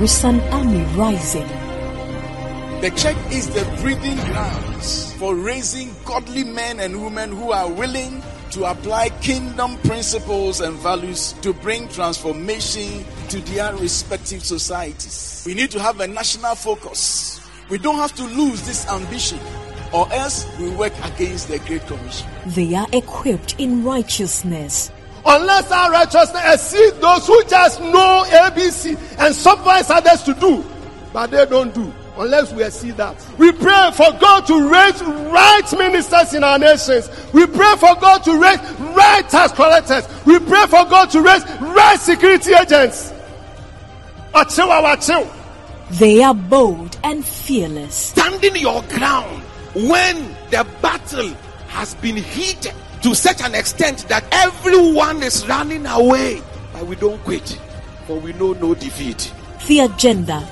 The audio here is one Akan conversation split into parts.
with an army rising. The church is the breeding grounds for raising godly men and women who are willing to apply kingdom principles and values to bring transformation to their respective societies. We need to have a national focus. We don't have to lose this ambition or else we work against the Great Commission. They are equipped in righteousness Unless our righteousness exceeds those who just know ABC and supervise others to do, but they don't do. Unless we see that. We pray for God to raise right ministers in our nations. We pray for God to raise right tax collectors. We pray for God to raise right security agents. Achill, achill. They are bold and fearless. Standing your ground when the battle has been heated to such an extent that everyone is running away. But we don't quit, for we know no defeat. The agenda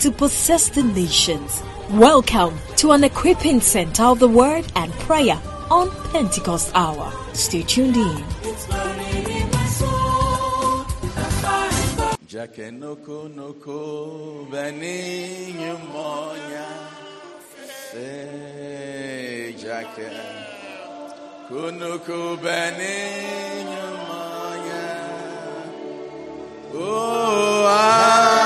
to possess the nations. Welcome to an equipping center of the word and prayer on Pentecost Hour. Stay tuned in. Jake noko noko bani nyumonya. Say Jake kunukubeni nyumaya. Oh, ah.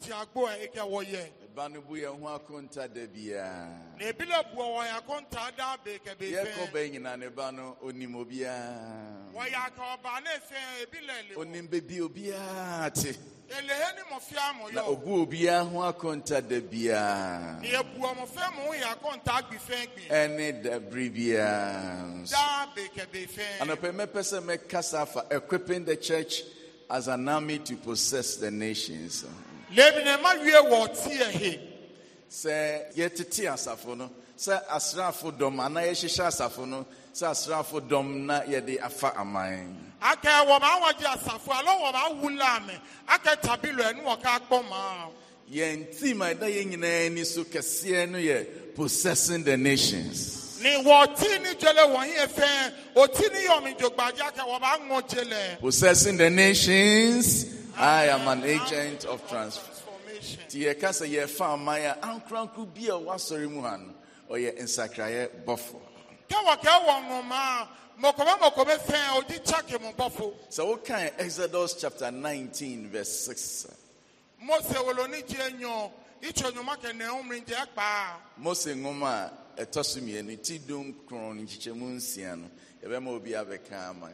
ti agbo a ɛkɛ wɔyɛ. Ɛba no bu yɛn ho akonta da biara. Na ebi la bu wɔn akonta da beekɛ beefɛ. Yɛ kɔba nyina ne ba no onim obiara. Wɔyɛ aka ɔba ne fɛn ebi la ele. Onim bebi obiara te. Elehe ni mo fia mo yɔ. Na obu obiara ho akonta da biara. Na ebu ɔmo fɛn mo yɛ akonta gbi fe gbi. Ɛne da biri biara. Da beekɛ beefɛ. Anɔpɛ mɛpɛ sɛ mɛkasa afa equipping the church as an army to possess the nations lebinema wie wɔ tie he. sɛ yɛtete asafo no sɛ asraafo dɔm anaa yɛhyehyɛ asafo no sɛ asraafo dɔm na yɛde afa aman. akɛ wɔn awɔgye asafo alo wɔn awu laame akɛ tabilo ɛnu wɔka akpɔ maa. yɛn team a ɛda yɛn nyinaa ani so kɛseɛ no yɛ possessing the nations. ni wɔ ti ni jele wɔn yɛ fɛn o ti ni yɔmi jogbadza kɛ wɔn aŋɔ jele. possessing the nations. I am an agent of transformation. Ti kasa yɛ odi Sọ Exodus chapter nineteen verse six. Mose woloni jẹ nyọ ìtsọ nyọma Mose ŋùmá ɛtɔ so dum ama.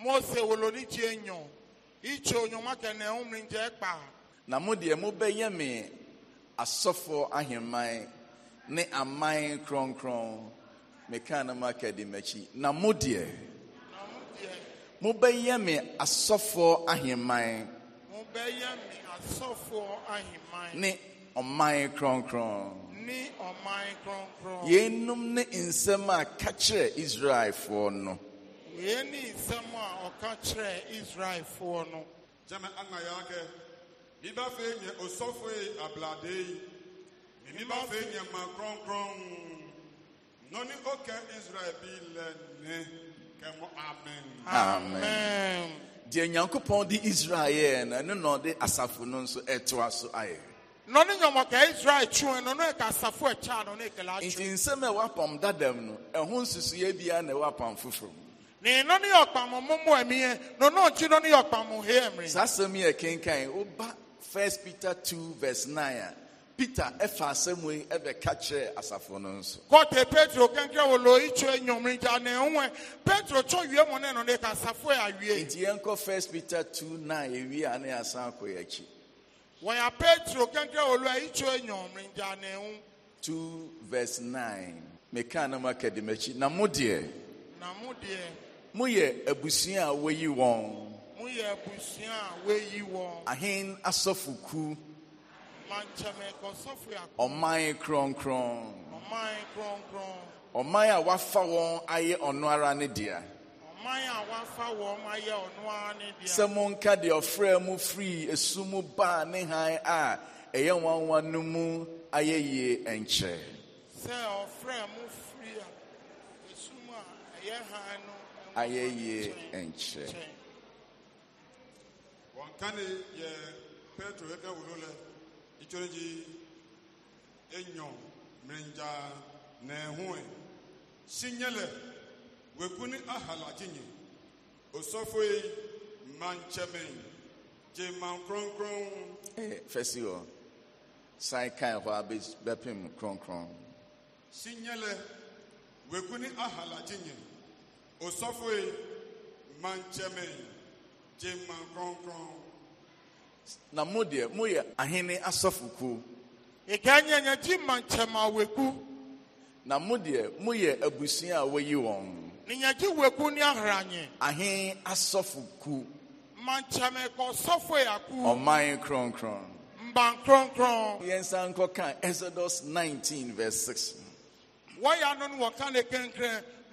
Mose woloni itso nyɔnua kɛnɛ ŋumri ŋdze kpa. na mo deɛ mo bɛ yɛ mi asɔfo aheman ne aman kronkron meka na mo aka di m'akyi na mo deɛ mo bɛ yɛ mi asɔfo aheman. mo bɛ yɛ mi asɔfo aheman. ne ɔman kronkron. ne ɔman kronkron. yenum ne nsɛm a kakyɛ israelfoɔ no. Any ne nsɛm a ɔka kyerɛ israelfoɔ no gyama ama yɛ akɛ meba afei nyɛ osɔfo yi ablade yi meba afei nyɛ ma kronkron nɔne ɔka israel bi lɛ ne kɛmɔ amen amen deɛ nyankopɔn de israel yɛɛ no ɛno na ɔde asafo no nso ɛtoa so ayɛ nɔne nyɔmɔka israel twe no no ɛka asafo ɛkyɛ no ne ɛkɛla nti nsɛm a ɛwɔ apam dadam no ɛho nsusueɛ biara na mu saa asɛm yɛ kenkan woba 1 peter 2 verse 9 a peter ɛfa asɛm yi ɛbɛka kyerɛ asafo no nso kɔte petro kankra wɔ lɔyi kyerɛ nnwom nti ane ho petro kyɔ wie mu ne no ne ka asafo yɛ awie nti yɛnkɔ 1 peter 2 9 ɛwie a ne yɛasan akɔ yɛakyi wɔyɛ petro kankra wɔ lɔyi kyerɛ nnwom nti ane ho 2 vs 9 mekaa na mu aka de m'akyi na mo deɛ na mo deɛ moyɛ abusua a wɔyi wɔn moyɛ abusua a wɔyi wɔn ahen asɔfoku ɔman kronkron ɔman kronkron ɔman a wafa wɔn ayɛ ɔno ara ne dea sɛ monka deɛ ɔfrɛ mu firi esu mu baa ne han a ɛyɛ nwanwa no mu ayɛ yie nkyɛ sɛ ɔfrɛ mu firi esu mu a ɛyɛ han no ayɛ yie nkyerɛ wɔnkane yɛ petro ɛka wuro lɛ itsɔre dzi enyɔ mɛnja nɛhoe si nye lɛ wɛku ni ahala dzinye osɔfoe mantsɛmɛ dze man kronkron. ee fɛsi wɔ san kan hɔ abe bɛpem kronkron. si nye lɛ wɛku ni ahala dzinye. osɔfoe Manchemen, ji mma nkronkron na mo deɛ moyɛ ahene asɔfokuo ɛganya nyagye ma nkyɛm awɛku na mo deɛ moyɛ abusua a wɔyi wɔn ne nyagye wɛku ne ahranye ahe asɔfoku ma nkyɛm kɔ sɔfoe ako ɔman kronkron mban kronkron yɛnsa nkɔka exodus 19 verse 6 wɔyɛ ano no wɔka ne kɛnkrɛn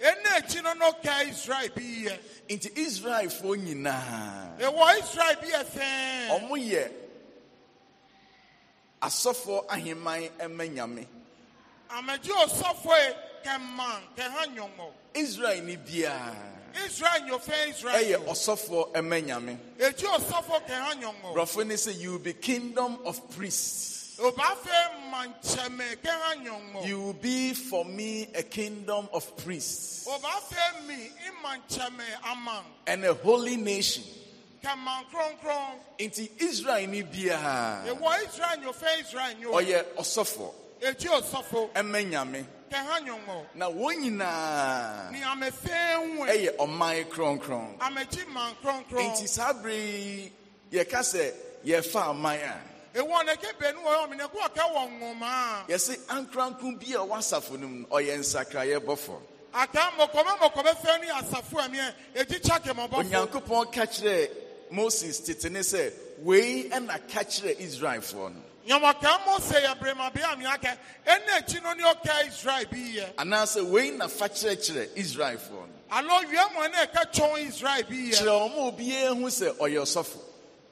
ɛna akyi no israel bi yɛ nti israelfoɔ nyinaa ɛwɔ israel bi yɛ sɛn ɔmo yɛ asɔfoɔ aheman ɛmɛ nyame amagye ɔsɔfoɔ yi kɛman kɛha nyɔmɔ israel ni biara israel nyɔfɛ israel ɛyɛ ɔsɔfoɔ ɛmɛ nyame ekyi ɔsɔfoɔ kɛha nyɔmɔ brɔfo ni you be kingdom of priests. You will be for me a kingdom of priests and a holy nation. Into Israel you biara. Ewo Israel Oye osofo. Eji osofo. Emenyame. Keha Na wɔn nyinaa. Ni ame fɛn wɛ. Ɛyɛ ɔman kronkron. Ameji man Nti saa bere yɛka sɛ yɛfa aman a yɛse ankrankron bi a ɔwɔ asafo no mu ɔyɛ nsakraeɛ bɔfo onyankopɔn ka kyerɛɛ moses tete ne sɛ wei ɛna ka Israel israelfoɔ no anaasɛ wei na fa kyerɛkyerɛ israelfoɔ no kyerɛ ɔma obiara hu sɛ ɔyɛ ɔsɔfo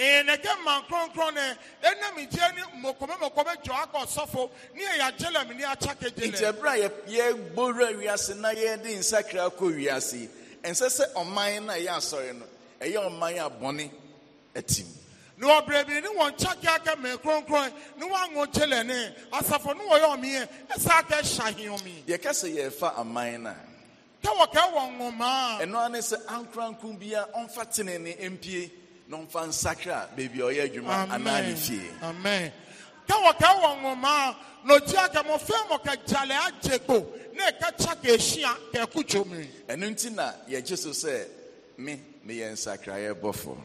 na yɛnɛgye man kronkron e ɛnam nkyɛn ne mɔkɔmɛ mɔkɔmɛ dwa akɔ sɔfo ne mi yagyelɛm ne akyake gyelɛ. nti ɛbura yɛ yɛ gbowura wiase na yɛde nsakira kɔ wiase ɛnsɛ sɛ ɔman na yɛ asɔre no ɛyɛ ɔman a bɔne ɛtim. na ɔbrɛ bi ni wɔn kyake aka mɛ kronkron ne wɔanwo gyelɛ ne asafo ne wɔyɛ ɔmeɛ ɛsɛ aka ɛhyɛ ahemmi. yɛ kɛse yɛ fa aman na. tɛwɔ n'ɔmfa baabi a ɔyɛ adwuma anaa ne fie amen ka wɔka wɔ nwoma na ɔgye aka mɔfra agye kpo na ɛka kya ka ɛhyia ka ɛko dwom ɛno nti na yɛgye so sɛ me meyɛ nsakraeɛ bɔfo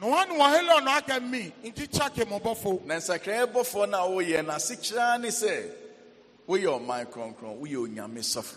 na wɔne wɔhelɔ aka mi nti kya ka mɔbɔfo na nsakraeɛ bɔfo no a woyɛ no ase kyerɛa ne sɛ woyɛ ɔman kronkron woyɛ onyame sɔfo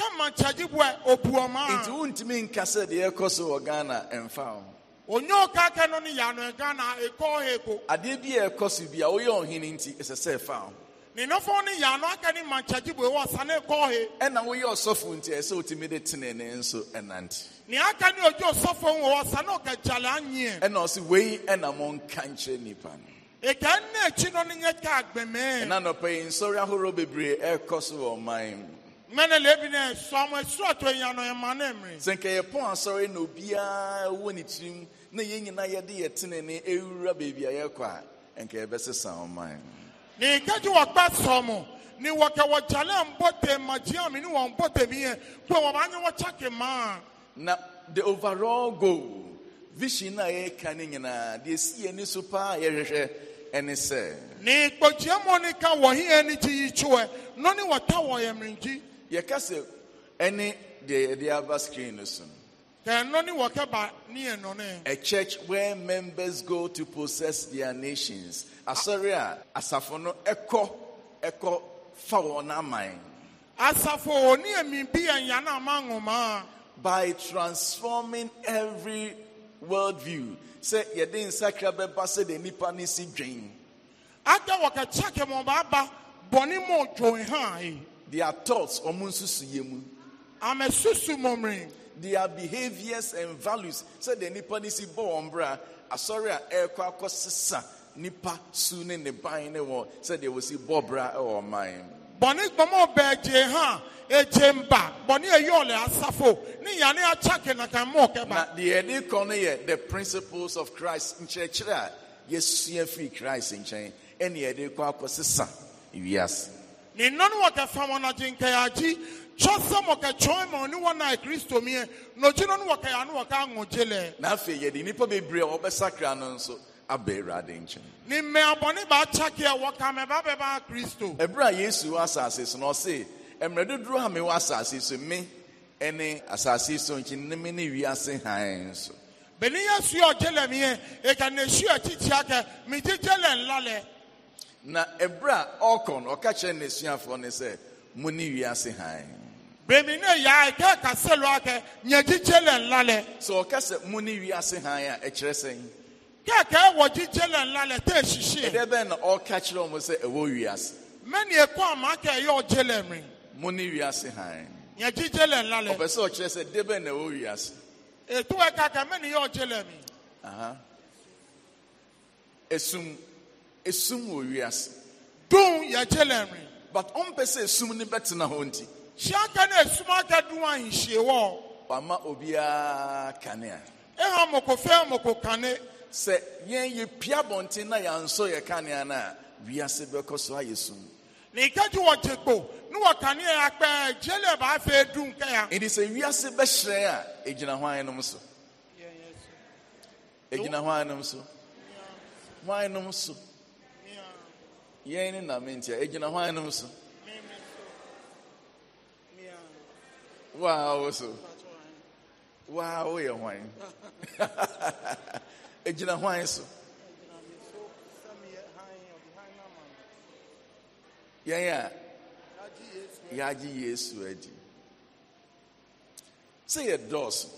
nti wontumi nka sɛ deɛ ɛkɔ so wɔ ghana ɛmfa wo adeɛ bi a ɛkɔ so bi a woyɛ ɔhene nti ɛsɛ sɛ ɛfa wo ninofo ni yanu akani manchaji bo ewa sane kɔhe. ɛna woyɛ ɔsɔfo nti ɛsɛ otimi de tene ne nso ɛnante. ni akani ojú ɔsɔfo ń wɔ sane ɔkàjàlè anyiɛ. ɛna ɔsi wei ɛna mo nka nkyerɛ nipa no. ìkà nne ekyi no ni nyɛ ká agbɛmɛ. ɛna nɔpɛ yi nsɔre sɛ nka yɛpɔn asɔre na obiara wɔ ne tirim na yɛn nyinaa yɛde ne ɛwura baabi a yɛkɔ a nka yɛbɛsesa ne nkagye wɔkpa sɔ mo ne wɔkɛwɔgyale mbɔte magyeame ne wɔn mbɔte miyɛ kpɛ wɔkyake na the overall goal vision a yɛreka ne nyinaa deɛ si yɛni so paa yɛhwehwɛ ɛne sɛ ne kpɔgyeamɔ ne ka wɔhe ani gye yi kyeɛ no ne wɔta wɔ yɛka ɛne deɛ yɛde aba screen no so no a church where members go to possess their nations Asaria, asafono echo, echo ɛkɔ mine, fa wɔn aman asafo oni by transforming every worldview Say, yadin sakrabe bɛba sɛ de nipa ne si dwen ada wɔkɛkyɛ kɛmɔba aba their thoughts ọmụ nsusu ya mu amesusu mọmịrị their behaviors and values sịdị nnipa si bọ wọn asọrị a ekwa akọ sịsa nnipa su ne ne ban ne wọn sịdị wosi bọ bra ịwọ mine. bọni gbọmọ bẹẹ ha egye mba bọni eyi ọlẹ asafo ne yane na kan mọ kẹba. na deɛ ɛde kɔ the principles of christ in nkyerɛkyerɛ a yɛsua firi christ in ɛne yɛde kɔ akɔ sisa yes. ne nna e e e. no wɔkɛ fa wɔn agye nkɛyagye kyɔ sɛ mɔkɛkyɔn ma ɔne wɔn a kristo miɛ na ɔgye no no wɔkɛ ano wɔka aŋɔgye lɛ. na afei yɛde nnipa bebree a wɔbɛsakra no nso aba awurade nkyɛn. ne mmɛ abɔne baakyake a wɔka mɛba bɛba kristo. ɛberɛ a yesu wɔ asase so na ɔse mmerɛ dodoɔ a mewɔ asase so me ne asase so nkyi ne me ne wiase hann so. benin yɛ su ɔgye lɛ miɛ eka na esu akyi kyia kɛ lɛ nla lɛ. na ebere a ɔkɔ na ɔka kyerɛ n'esuafoɔ no sɛ mo ne wiase bèmí ne yà á kẹ́ kàsé lọ́wọ́ kẹ́ nyẹ́jíjẹ́ lẹ̀ sọ ɔka sɛ mo ne wiase a ɛkyerɛ sɛn. kẹ́kẹ́ wọ jíjẹ́ lẹ̀ ńlá lẹ̀ tẹ́ ṣiṣẹ́. na ɔka kyerɛ ɔmo sɛ ɛwɔ wiase. mẹ́ni ekọ́ àmà kẹ́ yọ ɔjẹ́ lẹ̀ mi. si ne wiase hann. nyẹ́jíjẹ́ lẹ̀ ńlá lẹ̀. ɔbɛ sɛ na ɛwɔ wiase. ètò ɛka kẹ́ mẹ́ni yọ ɔjẹ́ lẹ̀ mi. esum. esum wɔ wiase. dun yɛ kyɛlɛ mi. but ɔmpɛ sɛ esum ni bɛtena hɔ nti. hyɛnka na esum aka dun ahinhyie wɔ. wama obiara kanea. ɛhɔn mɔkɔ fɛn mɔkɔ kane. sɛ yɛn yɛ pia bɔnten na nso yɛ kanea na wiase bɛkɔ so ayɛ sum. nìkẹ́jú wọ jẹ́gbò ní wọ kanea akpẹ́ jẹ́lẹ̀ bá fẹ́ dun kẹ́yà. it is a wiase bɛhyerɛn a egyina hwan nom so. egyina e hwan nom so. hwan nom so. yɛn ne nam ntia egyina hwan no so waa wo so waa woyɛ hwan egyina hwan so yɛn a yɛagye yesu adi sɛ yɛ dɔɔso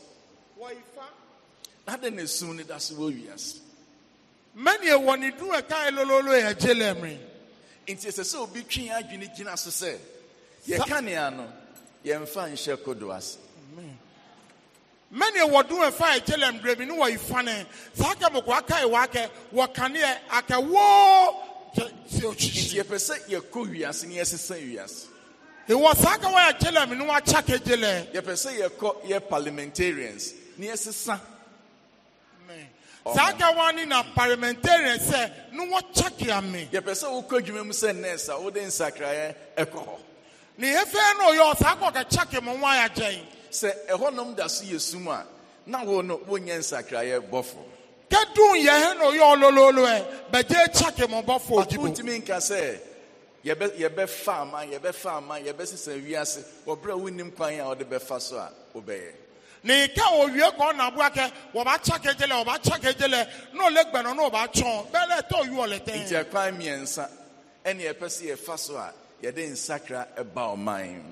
na dɛn na esum no da so wɔ wiase mɛneɛ wɔ ne du ɛkae lololo yɛ gye lɛ nti ɛsɛ sɛ obi twe adwene gyina so sɛ yɛka nea no yɛmfa nhyɛ kodo ase mɛni wɔdun ɛfa ɛkyɛlɛm bremi ne wɔyi fane saa kɛ mɔkɔ aka yi wakɛ wɔkaneɛ akɛ woo sɛ otwitwi. nti yɛpɛ sɛ yɛkɔ wiase ne yɛsesa wiase. ìwọ saa kɛ wɔyɛ kyɛlɛm ne wɔakyɛ gyelɛ. yɛpɛ sɛ yɛkɔ yɛ parliamentarians ne yɛsesa saa gawa ni na parliamentarian sɛ ne wɔkyakea me yɛpɛ sɛ wokɔ mu sɛ a ɛkɔ hɔ no kɔ sɛ ɛhɔnom da so yɛ sum a na wo no wonyɛ nsakraeɛ bɔfo kɛdun yɛhɛ no ɔyɛ ɔlololo ɛ bɛgye kyake mo bɔfo ɔdibo ɔtumi nka sɛ yɛbɛfa ama ama yɛbɛsesa wiase ama a wonim kwan a na ike owie ka ọ na-abụ aka ọbacha ka ejele ọbacha ka ejele na ole gbanọ na ọbachọ bele ta oyi olete nti akwa mmiɛnsa ɛne ɛpɛ sɛ yɛfa so a yɛde nsakra ɛba ɔman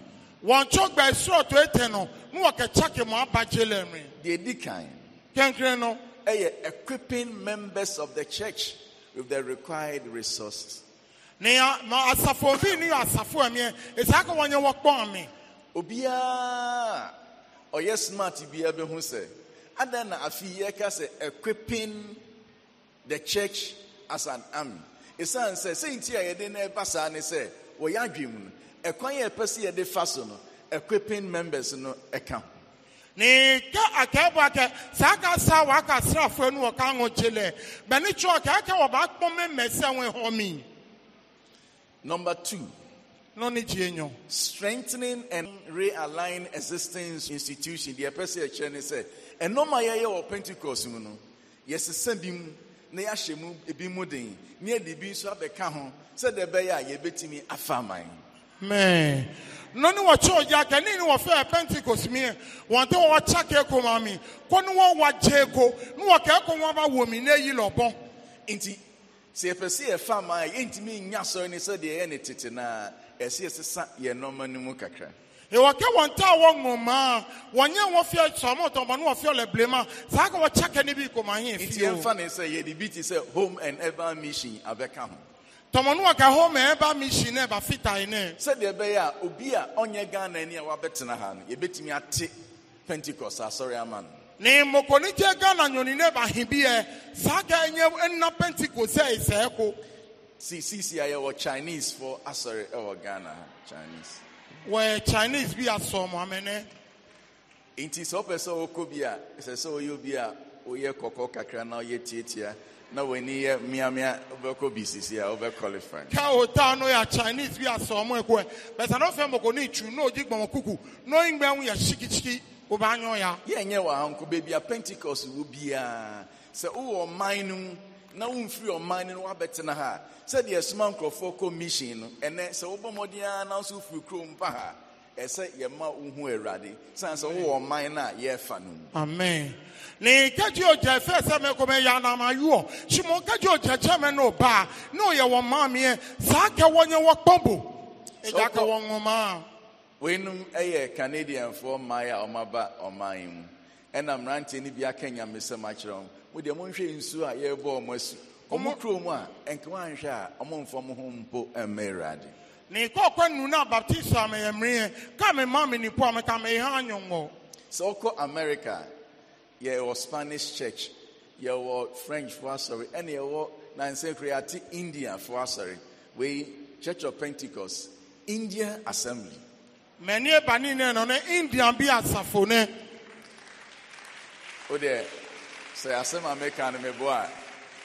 wɔn tso gba esoro to ete no na wɔkɛkya ke mu aba jele mi deɛ di kan kenkere no ɛyɛ equipping members of the church with the required resources ne ma asafo obi ni asafo ɛmiɛ esi aka wɔnyɛ wɔkpɔn mi obiara ɔyɛ smart biara ho sɛ Ada na afei ka sɛ equipping the church as an army ɛsiane sɛ sɛnti a yɛde na ɛba saa ne sɛ wɔyɛ adwene mu no ɛkwan a ɛpɛ sɛ yɛde fa so no equipping members no ɛka ho ne ka akɛɛbɔ akɛ saa ka sa waka srafoɔ no wɔka ho kye lɛ bɛne kyerɛ ɔkɛɛkɛ wɔbaakpɔ memɛ sɛ wo hɔ me number two Strengthening and realign existing institutions. The apostle chair ne and no my year or Pentecost, you know. Yes, send him na yɛahyɛ mu ebi mu den ne yɛde bi nso abɛka ho sɛ deɛ ɛbɛyɛ a yɛbɛtumi afa aman. mɛɛ nɔni wɔ kyɛw gya kɛne ni wɔfɛ pentikos mi yɛ e. wɔn tɛ wɔn kya kɛɛko ma mi kɔ ne wɔn wa gye ko ne wɔ kɛɛko wɔn ba wɔ mi ne yi lɔbɔ. nti sɛ yɛpɛ sɛ yɛfa aman yɛ ntumi nya sɔrɔ ne sɛ deɛ yɛ ne tete naa ɛsɛ yɛsesa yɛn nneɛma no mu kakra wɔka wɔn ta wɔ nwoma wɔnyɛ wɔn fia sɔmɔtɔn bɔ ne wɔn fia lɛbilema saa ka wɔkyɛ kɛne bi kɔma hɛn fi o. nti yɛmfa ne sɛ yɛde bi ti sɛ home and urban mission abɛka ho. tɔmɔnu wa ka home and urban mission nɛ fita yi nɛ. sɛdeɛ bɛyɛ a obi a ɔnyɛ ghana ni a wabɛtena ha no yɛbɛtumi ate pentikɔs asɔre ama no. ne mɔkɔni jɛ ghana nyɔni nɛ ba hin bi yɛ saa ka ɛnyɛ ɛnna pentikɔs see CCIA or Chinese for uh, sorry, or oh, Ghana Chinese. Where Chinese be at some woman, eh? It is open so Kubia, se so you be a Oye Koko Kakra now yet yet here. Now we need Miami over Kobe CCIA over qualifying. Chinese be at some work where, eh? but I don't feel more need to know Dick Mamakuku, knowing when we are Shikichi. Yeah, yeah, uncle baby, a Pentecost will be a uh, so oh, mine na womfiri ɔman no woabɛtena ha sɛdeɛ ɛsoma nkurɔfoɔ kɔ mission no ɛnɛ sɛ wobɔ mmɔden ara na nso wofiri kurom pa ha ɛsɛ yɛma wohu awurade sane sɛ wowɔ ɔman no a yɛrefa no mu amen ne kagye ogya fɛ sɛ mɛkɔmɛyɛ anamayoɔ hyimo kagye ogya kyɛ no ɔbaa ne ɔyɛ wɔ maameɛ saa kɛ wɔnyɛ wɔkpɔbo ɛgya ka wɔ nwoma a weinom ɛyɛ canadianfoɔ mmaa a ɔmaba ɔman mu ɛna mmeranteɛ no bi aka nyamesɛm akyerɛ wɔn mo deɛ monhwɛ nsuo a yɛrebɔ ɔmo asu ɔmo kurom a nkama nhwɛ a ɔmo mfa mo ho mpo nu na me ka me ma me a me ha america spanish church french india fo asɔre church of pentecost india assembly Many ɛba ne no ne india bi asafo ne there. sɛ asɛm a uh-huh. meka uh-huh. no mebo a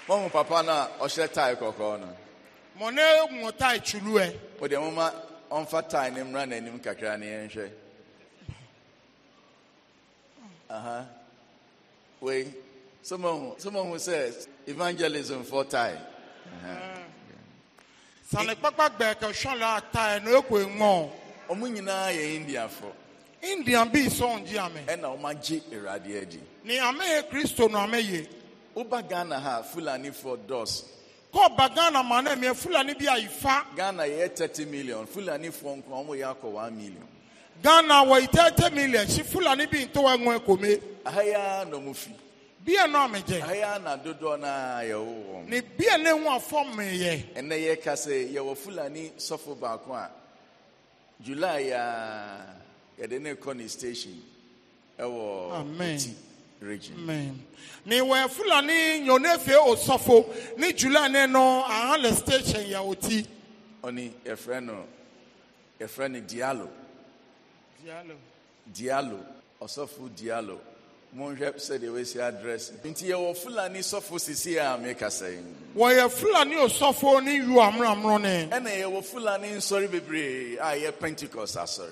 mahu papa no a ɔhyɛ tae kɔkɔɔ no mo ne mo tae kyulu ɛ mode moma ɔmfa tae na mmra n'anim kakra ne yɛnhwɛ aha wei sɛ mahu sɛ evangelism fɔ tae sane kpakpa gbɛɛ kɛ a tae no ɔmo nyinaa yɛ indian bi sɔn di amɛ. ɛna wɔn agye awurade adi. ni amɛ yɛ kristo na amɛ yɛ. woba ghana ha fulani fɔ dɔs. kɔɔba ghana ma na mɛ fulani bi ayi fa. ghana yɛ thirty million fulani fọ nkɔn wɔn yɛ akɔ one million. ghana wɔ yi thirty million si fulani bi ntɔwɔ ɛŋɔ ɛkɔmɛ. ahaya na ɔmo fi. bia na ɔmo gye. ahaya na dodoɔ na yɛ wɔ wɔn. ni bia ne ho afɔ mi yẹ. ɛnɛ yɛ kase yɛ wɔ fulani sɔfo baako a july yaa. yɛde ne kɔ ne station ɛwɔ ti region. ni wɛ fulani nyɔne fie osɔfo ni jula ne no ahan le station yɛ o ti. ɔni yɛfrɛ no yɛfrɛ no dialo. dialo. dialo ɔsɔfo dialo monhwɛ sɛdeɛ wɔasi adrɛs nti yɛwɔ fulani sɔfo sisi a mekasa yi wɔyɛ fulani osɔfo ne yu amramro ne ɛna yɛwɔ fulani nsɔre bebree a yɛ pentecost asɔre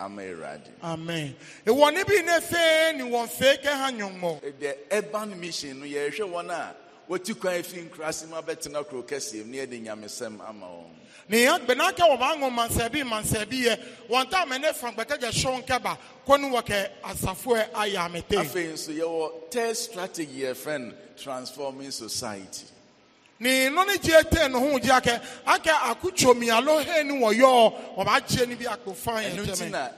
Amen. The urban mission, yɛhwɛ wɔn a wɔti kwan efi nkurasi mu abɛtena kuro kɛseɛ mu ne yɛde nyamesɛm ama wɔn. Nìyẹn gbẹ̀nà kẹ́ wọ́n bá ń wọn mansẹ̀bí mansẹ̀bí yẹ wọ́n tá àmì ní fangbẹ́kẹ́jẹ́ sọ́n kẹ́bà kó ní wọ́n kẹ́ àsàfo ẹ̀ ayé àmì tẹ́. Afẹ́ yìí nso yẹ wọ third strategy yẹ fẹ́ transforming society. ni nɔni jie tɛ nuhu jia kɛ a kɛ a ko tsomi alo he ni wɔyɔ o b'a jie ni bi a fan yɛ tɛmɛ. ɛnu ti na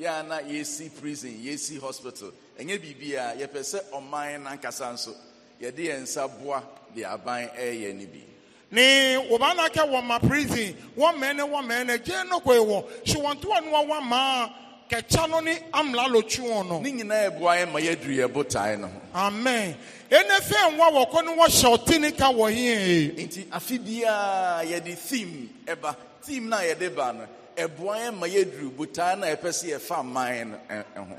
yana yesi prison yesi hospital ɛnyɛ bibi a yɛpɛ sɛ ɔman nankasa nso yɛde yɛn nsa boa de aban ɛyɛ e ni bi. ni o b'a na kɛ wɔn ma prison wɔn mɛnɛ wɔn mɛnɛ jɛ ne ko ye wɔ siwɔntiwɔ ni maa. kɛkyɛ no ne amla lotwi wɔn no. ne nyinaa ebu ayɛ ma yɛduru yɛ botae no. amen ɛnɛ fɛn wa wɔ kɔ ne wɔhyɛ ɔte ne ka wɔ hɛn. nti afi biara yɛde theme eba theme na yɛde ba no ebu ayɛ ma yɛduru botae na yɛpɛ si yɛfa aman no ho.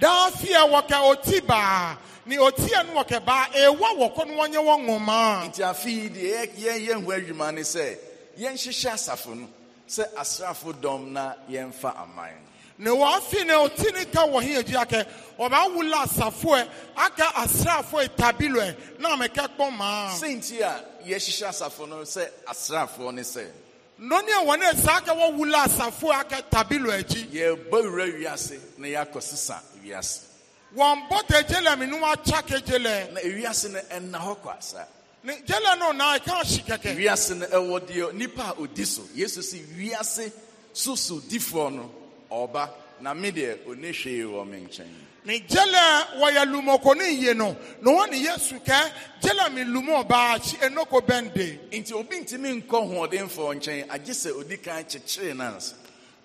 daafi a wɔkɛ ɔti baa ne ɔti a no wɔkɛ baa ewa wɔ kɔ ne wɔnyɛ wɔn ŋoma. nti afi yi deɛ yɛn yɛn ho adwuma ne sɛ yɛn hyehyɛ asafo no sɛ asrafo dɔm na yɛn fa aman. na wɔafi na ɔti ne ka wɔ he agyi akɛ ɔbɛawolɔ asafoɛ aka asraafoɔ tabiloɛ na mɛkɛ kpɔ maa senti a yɛhyehyɛ asafo no sɛ asraafoɔ ne sɛ nnɔne a wɔne ɛsaa ka wɔwolɔ asafoɔ aka tabilo akyi yɛba wura wiase na yɛakɔ sesa wiase wɔn bɔ te gyelɛ menom akya ke gyelɛ na ewiase no ɛna hɔ kɔ asa ne gyelɛ no na ɛka hye kɛkɛ wiase no ɛwɔ deɛ nipa a ɔdi so yesu si wiase so so difoɔ no Ọba, na me deɛ ɔne hwee wɔ me nkyɛn ne gyɛlɛ wɔyɛ lumɔkɔne yie no na wɔn ne yesu kɛ gyɛlɛ mi lumɔ baa akyi enoko bɛnde. nti obi ntumi nkɔ hoɔdenfoɔ nkyɛn agye sɛ odi kan kyekyere nansa.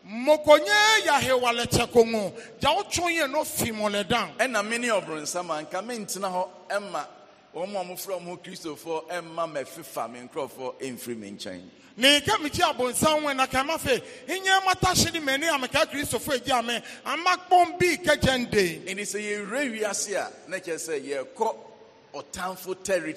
mokonye yahewale kyɛkongo gya Ẹ na no fi mɔlɛdan ɛna me ne ɔbronsam anka mentena ẹ ɛma wɔn a wɔfrɛ wɔn kristofoɔ ɛma mɛfifa me nkurɔfoɔ ɛmfiri me nkyɛn. ne nka mekyi abonsan wɛ na fe nyɛ mata hye ne m'ani a meka kristofoɔ ame ama kpɔn bi kɛkyɛ nde ɛnti sɛ yɛwerɛ wiase territory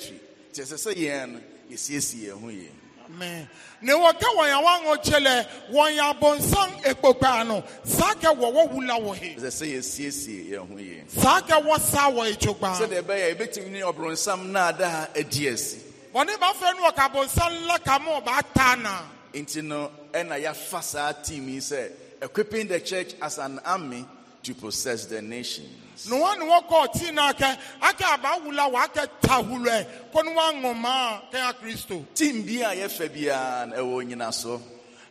kyerɛ sɛ sɛ yɛn no yɛsiesie yɛn ho ne wɔkɛ wɔn e a wɔaŋɔkye lɛ wɔn yɛ abɔnsam ano saa kɛ wɔwɔ wula wɔ he. ɛsɛ sɛ yɛsiesie yɛn ho yie. saa kɛ wɔ saa wɔ etsogba. sɛdeɛ ɛbɛyɛ ebetumi ne ɔbrɔnsam naada adi asi. wɔn ne b'a fɛ no ɔka abɔnsam la ka mo ɔba taa na. nti no ɛna yɛafa saa tiimi sɛ equipping the church as an army. to possess the nations. No one tina ke ke ake tahule Timbia ye febian ewo nyina so.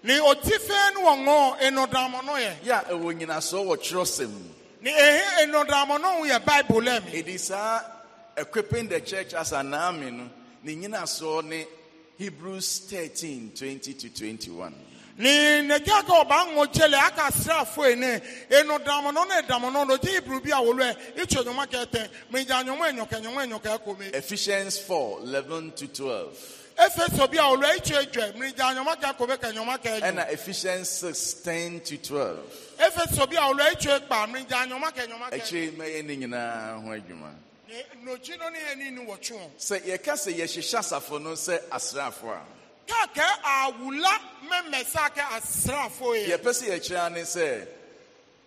Ne otife no ngo enodamo no ye. Ya ewo nyina so wo trosem. Ni ehe enodamo no ye Bible em. It is uh, equipping the church as an army no. Ni nyina so ne Hebrews thirteen twenty to 21. ne nagya ka ɔba ŋo gyele aka asraafo ene eno damo na ne na no no gye iburu bi a wolo ɛ itwa nyoma kɛtɛ megya nyoma enyɔkɛ nyoma enyɔkɛ kome. Ephesians four eleven to twelve. Efeso bi a wolo ɛ itwa edwa megya nyoma kɛ kome kɛ nyoma kɛ edwa. Ɛna Ephesians six ten to twelve. Efeso bi a wolo ɛ itwa ekpa megya nyoma kɛ nyoma echi Ekyir mɛyɛ ne nyinaa ho adwuma. N'okyi no ne yɛ chụọ. ni wɔtwe wɔn. Sɛ yɛka sɛ asafo no sɛ asraafo a. awula yɛpɛ sɛ yɛkyerɛ ne sɛ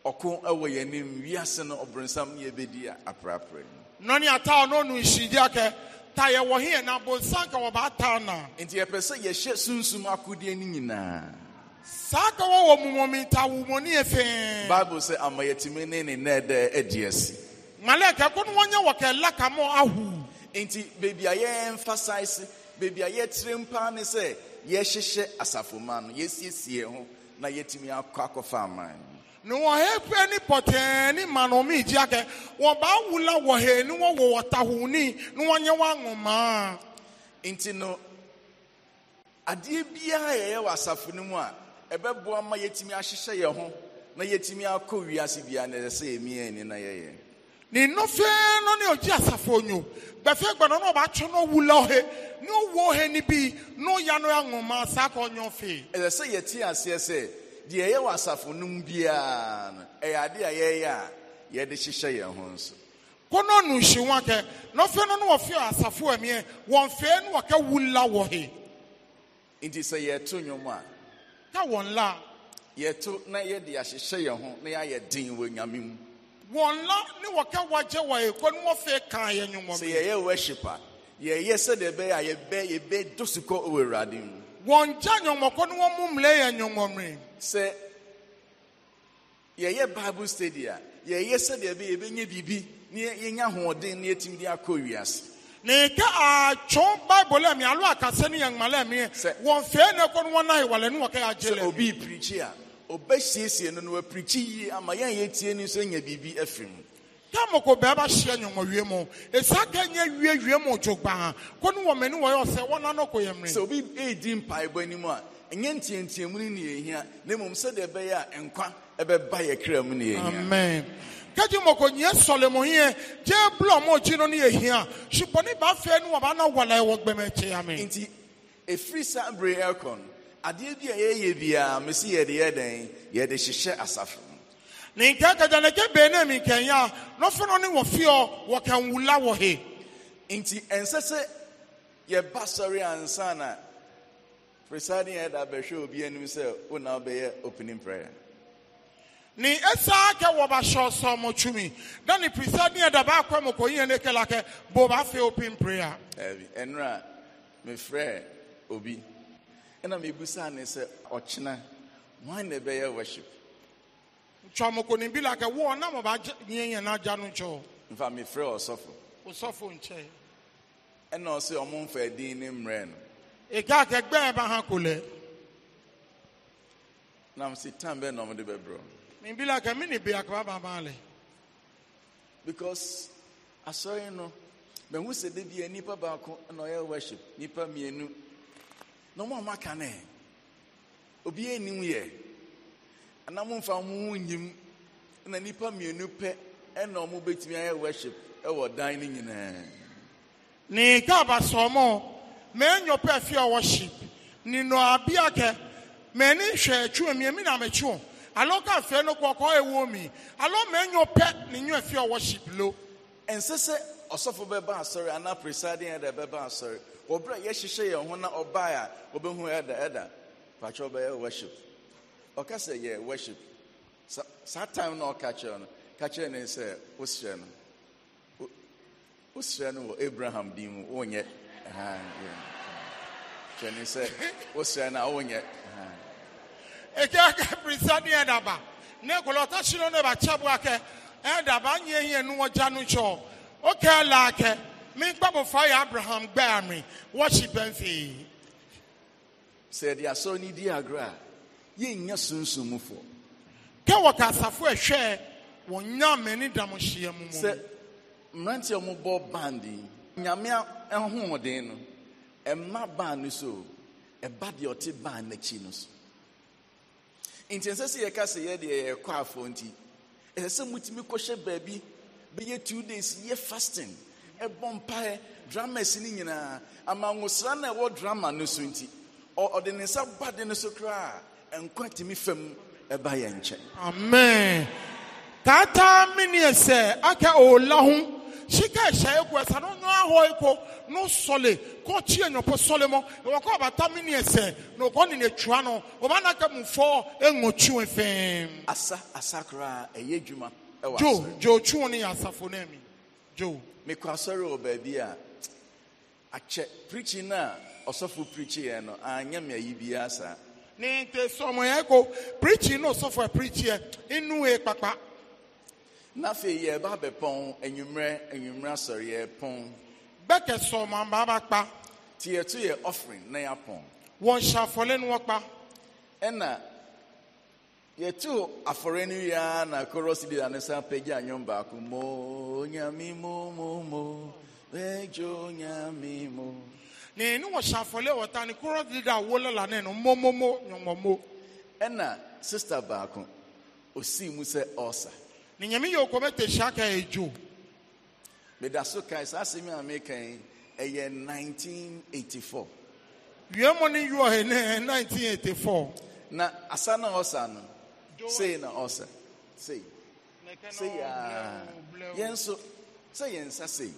ɔko ɛwɔ yɛanim wiase no ɔbronsam ne yɛbɛdi aprapra mu nɔne ata ɔno ɔno nhyidia kɛ ta yɛwɔ he na bonsan ka wɔbaata na nti yɛpɛ sɛ yɛhyɛ sunsun akodeɛ ne nyinaa saa ka wɔwɔ mumɔmenta womɔne yɛ fee bible sɛ ama yɛtumi ne ne nɛ dɛ adi asi malɛ kɛko no wɔnyɛ wɔ kɛ laka ahu nti beebi a yɛmfa sae se beebi a yɛtiri mpaa ne sɛ yɛhyehyɛ asafoma no yɛsiesie ho na yɛtumi akɔ akɔfa aman no. ne wɔn hɛ ni pɔtɛɛ Ma manomi gyi akɛ wɔn baa wula wɔ hɛ ni wɔn wɔ wɔtahuni ni wɔn nti no adeɛ biara yɛyɛ wɔ asafo no mu a ɛbɛboa ma yɛtumi ahyehyɛ yɛn ho na yɛtumi akɔ wiase biara na yɛsɛ yɛ mmiɛn ni na yɛyɛ. ne nnọfe no asafo onyo bɛfɛ na ɔbaatwe no ɔwu la ne ɔwu ɔhe no bi na ɔya no anwoma saa ka ɔnyɛ ɛsɛ sɛ yɛte aseɛ sɛ deɛ ɛyɛ wɔ asafo no biara no ɛyɛ ade a yɛyɛ a yɛde hyehyɛ yɛn ho nso kɔnɔ nu hyi wɔn kɛ nɔfɛ no no asafo ɛmiɛ wɔn no wɔ nti sɛ a ka wɔn la yɛto na na yɛayɛ den wɔ wɔn la ne wɔka wagye wɔ ekɔ ne wɔfɛ kan yɛ nyɔmɔ mi. sɛ yɛyɛ wɔshipa yɛyɛ sɛdeɛ bɛyɛ a yɛbɛ yɛbɛ do sukɔ wɔ awurade mu. wɔn gya nyɔmɔkɔ ne wɔn mu mmerɛ yɛ nyɔmɔ mi. sɛ yɛyɛ bible study a yɛyɛ sɛdeɛ bɛyɛ yɛbɛnyɛ biribi ne yɛnya ahoɔden ne yɛtumi de akɔ wiase. ne ke atso bible mi alo akasɛ ne yɛn ŋmalɛ mi yɛ wɔn fɛ ne kɔ ne wɔn na yɛ wɔlɛ ne wɔkɛ yɛ agye lɛ. sɛ obi pirikyi a. ɔbɛsiesie no no wapirikyi yie ama yɛn a yɛtie no nso nya biribi afiri mu tamoko bɛɛba hyia nyɔnmɔwie mu esia ka nye wie wie mu dzo gbaa ko ne wɔn ani wɔyɛ ɔsɛ wɔn ano ko yɛ mmiri. sɛ obi edi mpaebɔ anim a nye ntiantiamu ne nea ehia na mmom sɛdeɛ ɛbɛyɛ a nkwa ɛbɛba yɛ kra mu nea ehia. amen kejì mọ̀kò nyẹ sọ̀lẹ̀mọ̀ yẹn jẹ́ búlọ̀ mọ̀ jí ní ehia ṣùgbọ́n ní bá fẹ́ ni wọ́n bá ná wàlẹ̀ wọ gbẹmẹ̀ kyẹ́ yà mí. nti efiri bèrè ẹ̀kọ́ no adeɛ bi a yɛyɛ biara mesi yɛde yɛ dɛn yɛde hyehyɛ asafo ne nkɛnkɛgya ne gye bee ne mi nkɛnya n'ofe no ne wɔ fiɔ wɔ kɛnwula wɔ he. nti ɛnsɛ sɛ yɛba sɔre ansa na presiding head abɛhwɛ obi anim sɛ o na opening prayer. ne ɛsaa kɛ wɔ ba hyɛ ɔsɔmɔ twumi na ne presiding head abaa kɔ mu kɔ yiyɛ ne kɛlɛ akɛ bɔ ba fɛ opening prayer. ɛbi ɛnura mefrɛ obi. ɛna mebusaa ne sɛ ɔkyena hwan na ɛbɛyɛ worship ntwamokoni bi la kɛ na mɔba nyɛ yɛn n'agya no nkyɛ o. nfa mi fira ɔsɔfo. ɔsɔfo nkyɛn. ɛna ɔsɛ ɔmo nfa ɛdin ne mmerɛ no. ega akɛgbɛɛ ba ha ko Na nam tam tan na ɔmo de bɛ brɔ. mi bi la kɛ mi ni bi akaba ba ba lɛ. because asɔre no mɛ n wusa de bi yɛ nipa baako ɛna ɔyɛ worship nnipa mmienu. na makane, a ɔmo aka no obiara anim yɛ anam mfa ho nyim na nipa mmienu pɛ ɛna ɔmo worship ɛwɔ dining no ne gaaba sɔmɔ mɛnyɔ pɛ worship nino nɔ abia kɛ ni hwɛ atwi mi emi na mechu. Aloka alo no kɔkɔ ewo mi alo mɛnyɔ pɛ ne worship lo. ɛnsɛ sɛ ɔsɔfo bɛba sorry anaa presiding ɛdɛ bɛba sorry wɔ berɛ a yɛhyehyɛ yɛn na ɔbae a wɔbɛhu worship ɔka sɛ worship saa time na ɔka no ka ne sɛ wosrɛ no wosrɛ no abraham din mu wonyɛ kyerɛ ne sɛ wosrɛ no a wonyɛ ɛkɛkɛ pirisa ne ɛdaba ne kɔlɔtɔ sino ne ba me gbabofra yɛ abraham gbaa me wɔhye pɛmfee sɛ yɛde asɔre ni di agorɔ a yɛnnya sunsummufoɔ kɛ wɔka asafo ɛhwɛ wɔnya m'ani da mo hyia mu mu sɛ mmeranteɛ mobɔ band yi nyame ahoɔden no ɛma band no so ɛba deɛ ɔte band n'akyi no so nti ɛnsɛ sɛ yɛka sɛ yɛdeɛ yɛkɔ afoɔ nti ɛsɛ sɛ mutumi kɔhyɛ baabi bɛyɛ two days yɛ fasting ɛbɔ mpaeɛ dramas no nyinaa amangosra na ɛwɔ drama no so nti ɔde ne nsa ba de no so koraa nkwa tumi fam ɛba yɛ nkyɛn amen taataa meneɛ sɛ aka ɔla ho sika ɛhyɛ egu ɛsa no nyɔ ahɔ eko no sɔle kɔ kyi enyɔpɔ sɔle mɔ ɛwɔ kɔ ɔbata mi ni na ɔkɔ ni n'etua no ɔba n'aka mu fɔ eŋo twi fɛn. asa asa koraa ɛyɛ edwuma ɛwɔ asɔre jo jo twi ni asafo na Joe. mekɔ asɔre wɔ baabi a akyɛ no a ɔsɔfo preachi yɛ no me ayi no a preachi inu yɛ kpakpa. na afei yɛ ba bɛ pɔn enyimrɛ enyimrɛ asɔre yɛ pɔn. bɛkɛ sɔmɔ baba kpa. e offering na yɛ pɔn. wɔn hyɛ yɛtu afɔre no yia na koros leader no san pagya nnwom baako mo nyame mo mo mo bɛdwo nyame mo ne ne wɔhyɛ afɔle wɔta ne koros leader a wolela ne no mmomomo nwɔmmɔmo ɛna sister baako osii mu sɛ ɔsa ne nyame yɛ okɔmɛte hyia ka ɛdwo meda so kae saa asɛm a meka ɛyɛ 1984 wiemɔ ne ne 1984 na asa na ɔsa no sei na ɔsɛ sei sei aa ya nso sɛ yɛn nsa sei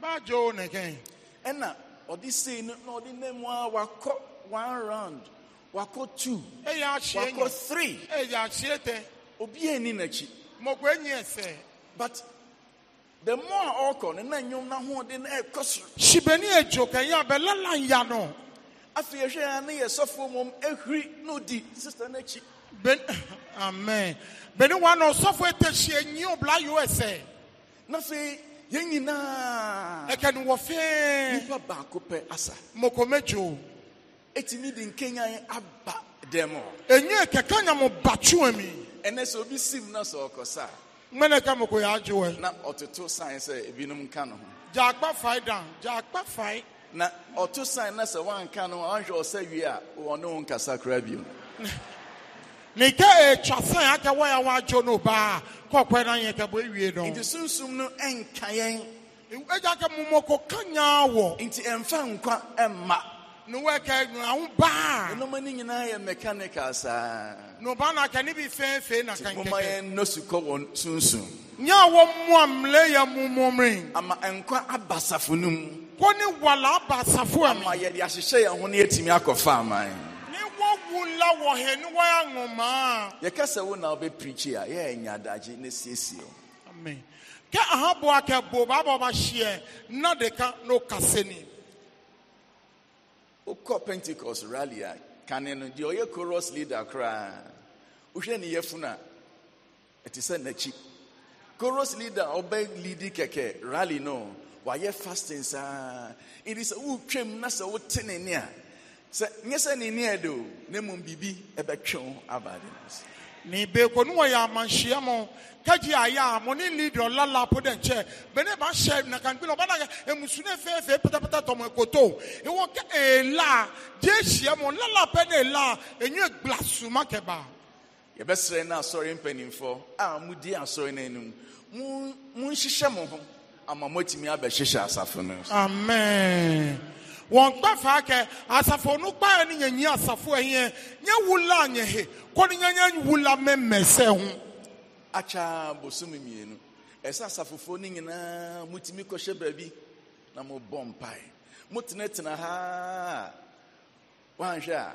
baajo ne kɛn ɛna ọ dị no na ọ ɔde nam a wakọ one round wakọ two wakọ three eh, ya te. obi ani n'akyi mɔkɔ enyi ɛsɛ but the more a ɔkɔ ne na nnwom n'ahoɔden na ɛkɔ soro sibeni edzo kɛnyɛ abɛlala ya no afei ehwɛ ya ne yɛ sɔfo mom ehuri n'odi sista n'akyi ben. amen bɛni wa na ɔsɔfo etɛhyia nyi obla usa na afei yɛn nyinaa ɛkɛni wɔ fɛɛ nipa baako pɛ asa mokomejo etimi di nkenya aba dɛm Enye kaka kɛkɛ nyamu batuwa mi ɛnɛ sɛ obi sim na sɛ ɔkɔsa mmɛnɛ ka moko yɛ na ɔtoto sign sɛ ebinom ka no ho gya akpa dan gya akpa na ɔto sign na se wanka no ho anhwɛ ɔsɛ wie a wɔne wo nkasa koraa bio nke ị gaghị ya san ya nwa adwo no e e baa ka ɔkwan na yɛ kɛbɔ ewie no. nti sunsun no ɛnka yɛn. egya ka mmɔmɔkɔ kanya wɔ. nti ɛnfa nkwa mma. na wɔn ɛka ahụ baa. nneɛma ni nyinaa yɛ mechanical saa. na na aka ne bi fɛnfɛn na aka ti mo ma yɛn wọ kɔ wɔn sunsun. nye a wɔn mu amule yɛ mumumiri. ama nkwa abasafo no mu. kɔ ne wala abasafo ama yɛde ahyehyɛ yɛn ho ne etimi akɔ faama yɛn. wula wɔ hɛ ne wɔyɛ yɛkɛsɛ wo na wobɛprikyi a yɛyɛ adagye ne siesie o amen kɛ ahaboa kɛ bo baaba ɔbahyeɛ na deka na ɔkasɛ ni wokɔ pentecost rally a kane no deɛ ɔyɛ coros leader koraa wohwɛ ne yɛfunu funa, ɛte sɛ n'akyi coros leader ɔbɛ leadi kɛkɛ rally no wayɛ fasting saa ɛdi sɛ wotwam na sɛ wote ne ne a sɛ nyɛ sɛ ne neɛ de o ne mmom biribi ɛbɛtwe aba ade no ase e ne beeko no wɔyɛ amanhyia mo kagye e ayɛ a mo ne leader ɔlala po dɛ nkyɛ bɛne bahyɛ nakanpila ɔbɛna ɛmusune fɛɛfɛ patapata tɔmɔ ɛkoto ɛwɔ kɛ ɛla gye hyia mo lala pɛ ne ɛla ɛnyɛ gbla suma kɛba yɛbɛsrɛ no asɔre mpanimfoɔ a modi asɔre no anim monhyehyɛ mo ho ama moatumi abɛhyehyɛ asafo no amen wɔn kpɛfa kɛ asafo no kpaɛ ne yɛnyi asafo ɛyɛ nyɛ wula nyɛ he kɔ ne nyɛ wula mɛmɛ sɛ ho. akya bosom mmienu ɛsɛ asafofoɔ no nyinaa mutumi kɔhyɛ baabi na mobɔ mpae motenatena ha a woanhwɛ a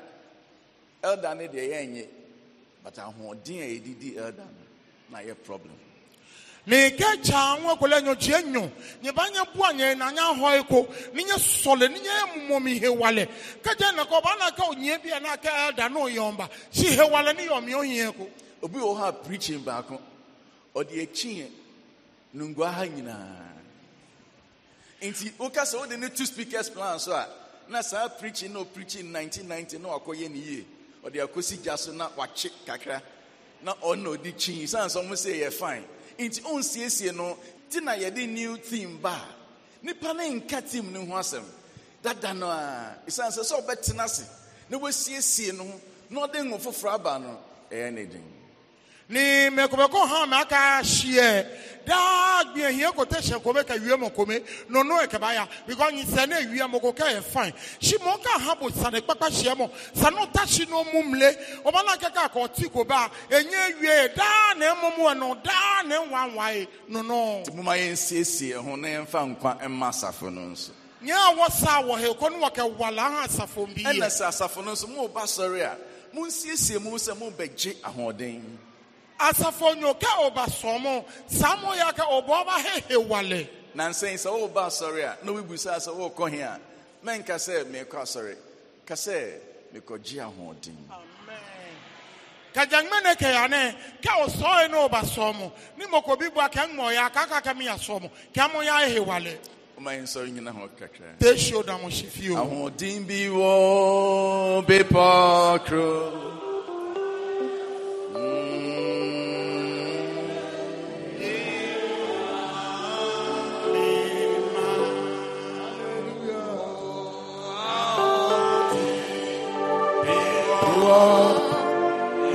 elda ne deɛ yɛnyɛ but ahoɔden a yɛdidi elda no na yɛ problem na ike cha nwa kwele nyo je nyo nye ba nye bua nye na nya ho eko ni nye sole ni nye mumo mi he wale ka je na ko ba na ka onye bia na ka da no yomba si he wale ni yomi onye eko obi wo ha preaching ba ko o de echi no ngwa ha nyina nti wo ka se wo de ne two speakers plan so a na saa preaching no preaching 1990 na akoye ni ye o de akosi gya so na wache kakra na ọ na odi chi sanso mo say ye fine nti ɔnsiesie no ti na yɛde new team ba nipa ne nka team ne ho asɛm dada no a esan sɛ sɛ ɔbɛtena ase na wasiesie no na ɔde ngo foforɔ aba no ɛyɛ ne den. ni mekobeko hã me aka sie daa gbie hia ko te hyɛ kome ka wie mo kome nono eke ba ya because nyisa ne ewia mo ko ka yɛ si mo ka ha bo sa ne kpakpa hyɛ mo sa no ta si no mu mle ɔba na keka ka ɔti ko ba enye wie daa na emu mu e no daa na nwanwae nono. ti mo ma yɛn siesie ho na yɛn fa nkwa mma asafo no nso. nyɛ a wɔsa wɔ ha ekɔ no wɔkɛ wala ha asafo bi e yɛ. ɛna sɛ asafo no nso mo ba sɔre a mo nsiesie mo sɛ mo bɛ gye ahoɔden. asafo nyo ka ọba sọmọ samọ ya ka ọba ọba hehe wale. na nsɛn sɛ wɔreba asɔre a na wobibusa sɛ wɔrekɔ he a mɛnka sɛ merekɔ asɔre ka sɛ mekɔgye ahoɔden kajaŋmene kɛyane kɛ o sɔɔye ne o ba sɔɔmo ni mɔkɔ bi bɔ a kɛ ŋmɔya k'a ka kɛ min ya sɔɔmo ka mo y'a ye wale. o ma ɲin sɔrɔ na hɔn kakra. te si o da mo si fiyewu. ahoɔden bi wɔ bepɔ kuro.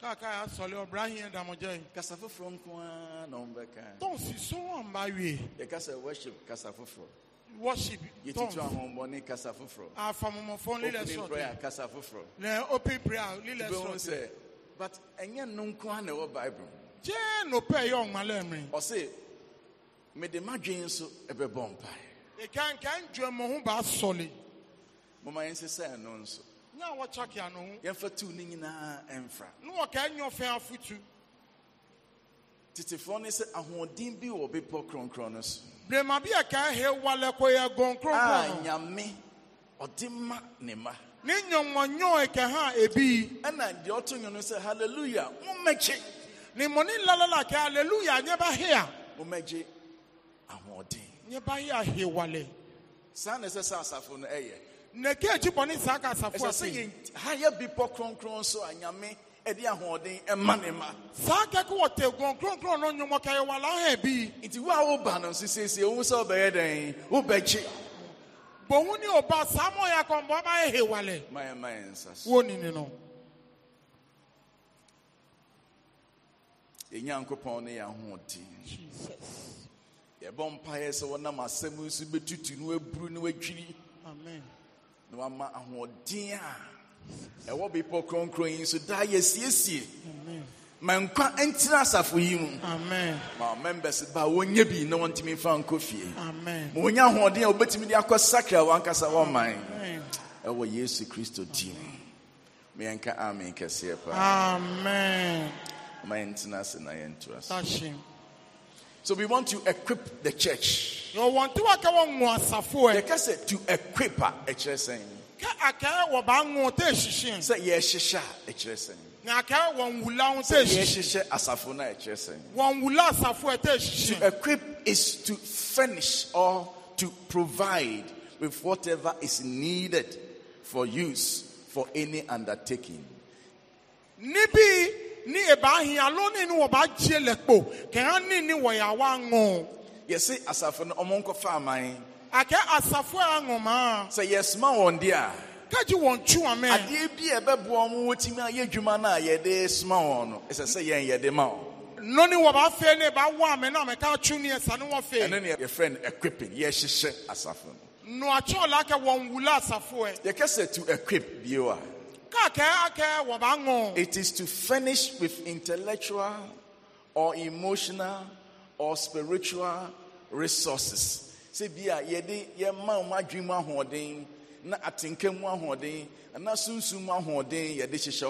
kaka asɔle ɔbra hiɛ damɔjɛ. kasa foforɔ nkoa na ɔn bɛ kan. tɔnsi sɔngɔn ba wie. yɛ kasa worship kasa foforɔ. worship tɔnsi. yɛtutu ahɔnbɔni kasa foforɔ. afamɔmɔfɔn lilɛ sɔtɛ. opening prayer kasa foforɔ. lɛ open prayer lilɛ sɔtɛ. bɛn sɛ but ɛnyɛ no nkoa na ɛwɔ bible. jɛn n'opɛ yɛ ɔnmalɛ mi. ɔsi mɛde ma dwen nso ɛbɛ bɔ mpa. ìkànkàn jẹ mọ̀ hún bá sọ̀lẹ̀. máa ń sẹ́sẹ́ ẹ̀ nso na wɔkya kea no ho yɛmfa tu no nyinaa ɛmfra na wɔkaa nyɛ ɔfɛn afotu tetefoɔ ne sɛ ahoɔden bi wɔ bepɔ kronkron no so brema bi a kaa hewale kɔyɛ gɔnkronkron nyame ɔde ma ne ma ne nyɔnwɔnyɔn ɛkɛ ha ebi ɛna deɛ ɔto nwom no sɛ hallelujah mommɛkye ne mɔni lalala kɛ hallelujah nyɛ ba hea mommɛgye ahoɔden nyɛ ba he wale. saa na ɛsɛ sɛ asafo no ɛyɛ nake akyi bɔne saa ka asafo ase sɛ yɛhayɛ bepɔ kronkron so a nyame ɛde ahoɔden ɛma ne ma saa kɛkɛ wɔ te kronkronkron no nwomɔ kɛyɛ wɔ alaha bi nti wo a woba no nso siesie wohu sɛ wobɛyɛ dɛn wobɛkye bohu ne ɔba saa ma ɔyɛ akɔmbɔ ma yɛ hewale mayɛma yɛ nsa so wɔnini no yɛnyankopɔn ne yɛ ahoɔden yɛbɔ mpaeɛ sɛ wɔnam asɛm nso bɛtutu no aburu no adwiri amen na wama ahoɔden a ɛwɔ bepɔ kronkron yi so daa yɛsiesie ma nkwa ntena asafo yi mu ma members ba wɔnyɛ bi na wɔntumi mfa nkɔ fie ma wɔnya ahoɔden a wɔbɛtumi de akɔ sakra wɔankasa wɔman ɛwɔ yesu kristo din mu meyɛnka amen kɛseɛ paa ma yɛntena ase na yɛntoa so so we want to equip the church. Eh. The case to equip her, a church saying. Say yes, shisha, a church saying. To equip is to furnish or to provide with whatever is needed for use for any undertaking. Nibi ne ɛbaa hia lone ne wɔbaagye lɛ kpo kɛha ne ne wɔyɛ awa ŋo yɛse asafo no ɔmo nkɔfa aman akɛ asafo a ŋomaa sɛ yɛsoma wɔn de a kagye wɔn twu amɛ adeɛ bi a ɛbɛboa mo wɔtumi ayɛ adwuma no a yɛde soma wɔn no ɛsɛ sɛ yɛn yɛde ma wɔn no ni wɔ b'a fɛ ne b'a wɔ amɛ na mɛ k'a tu ni yɛ sanni wɔ fɛ. ɛne ni yɛ fɛn equipping yɛ hyehyɛ asafo no. nua tí o la kɛ wɔn wula asafo yɛ. yɛ kɛsɛ tu equip bi wa. It is to finish with intellectual or emotional or spiritual resources. Say, Bia, ye, ye, ma, ma, dream, holding, na, atinkem, holding, and na, soon, soon, holding, ye, this is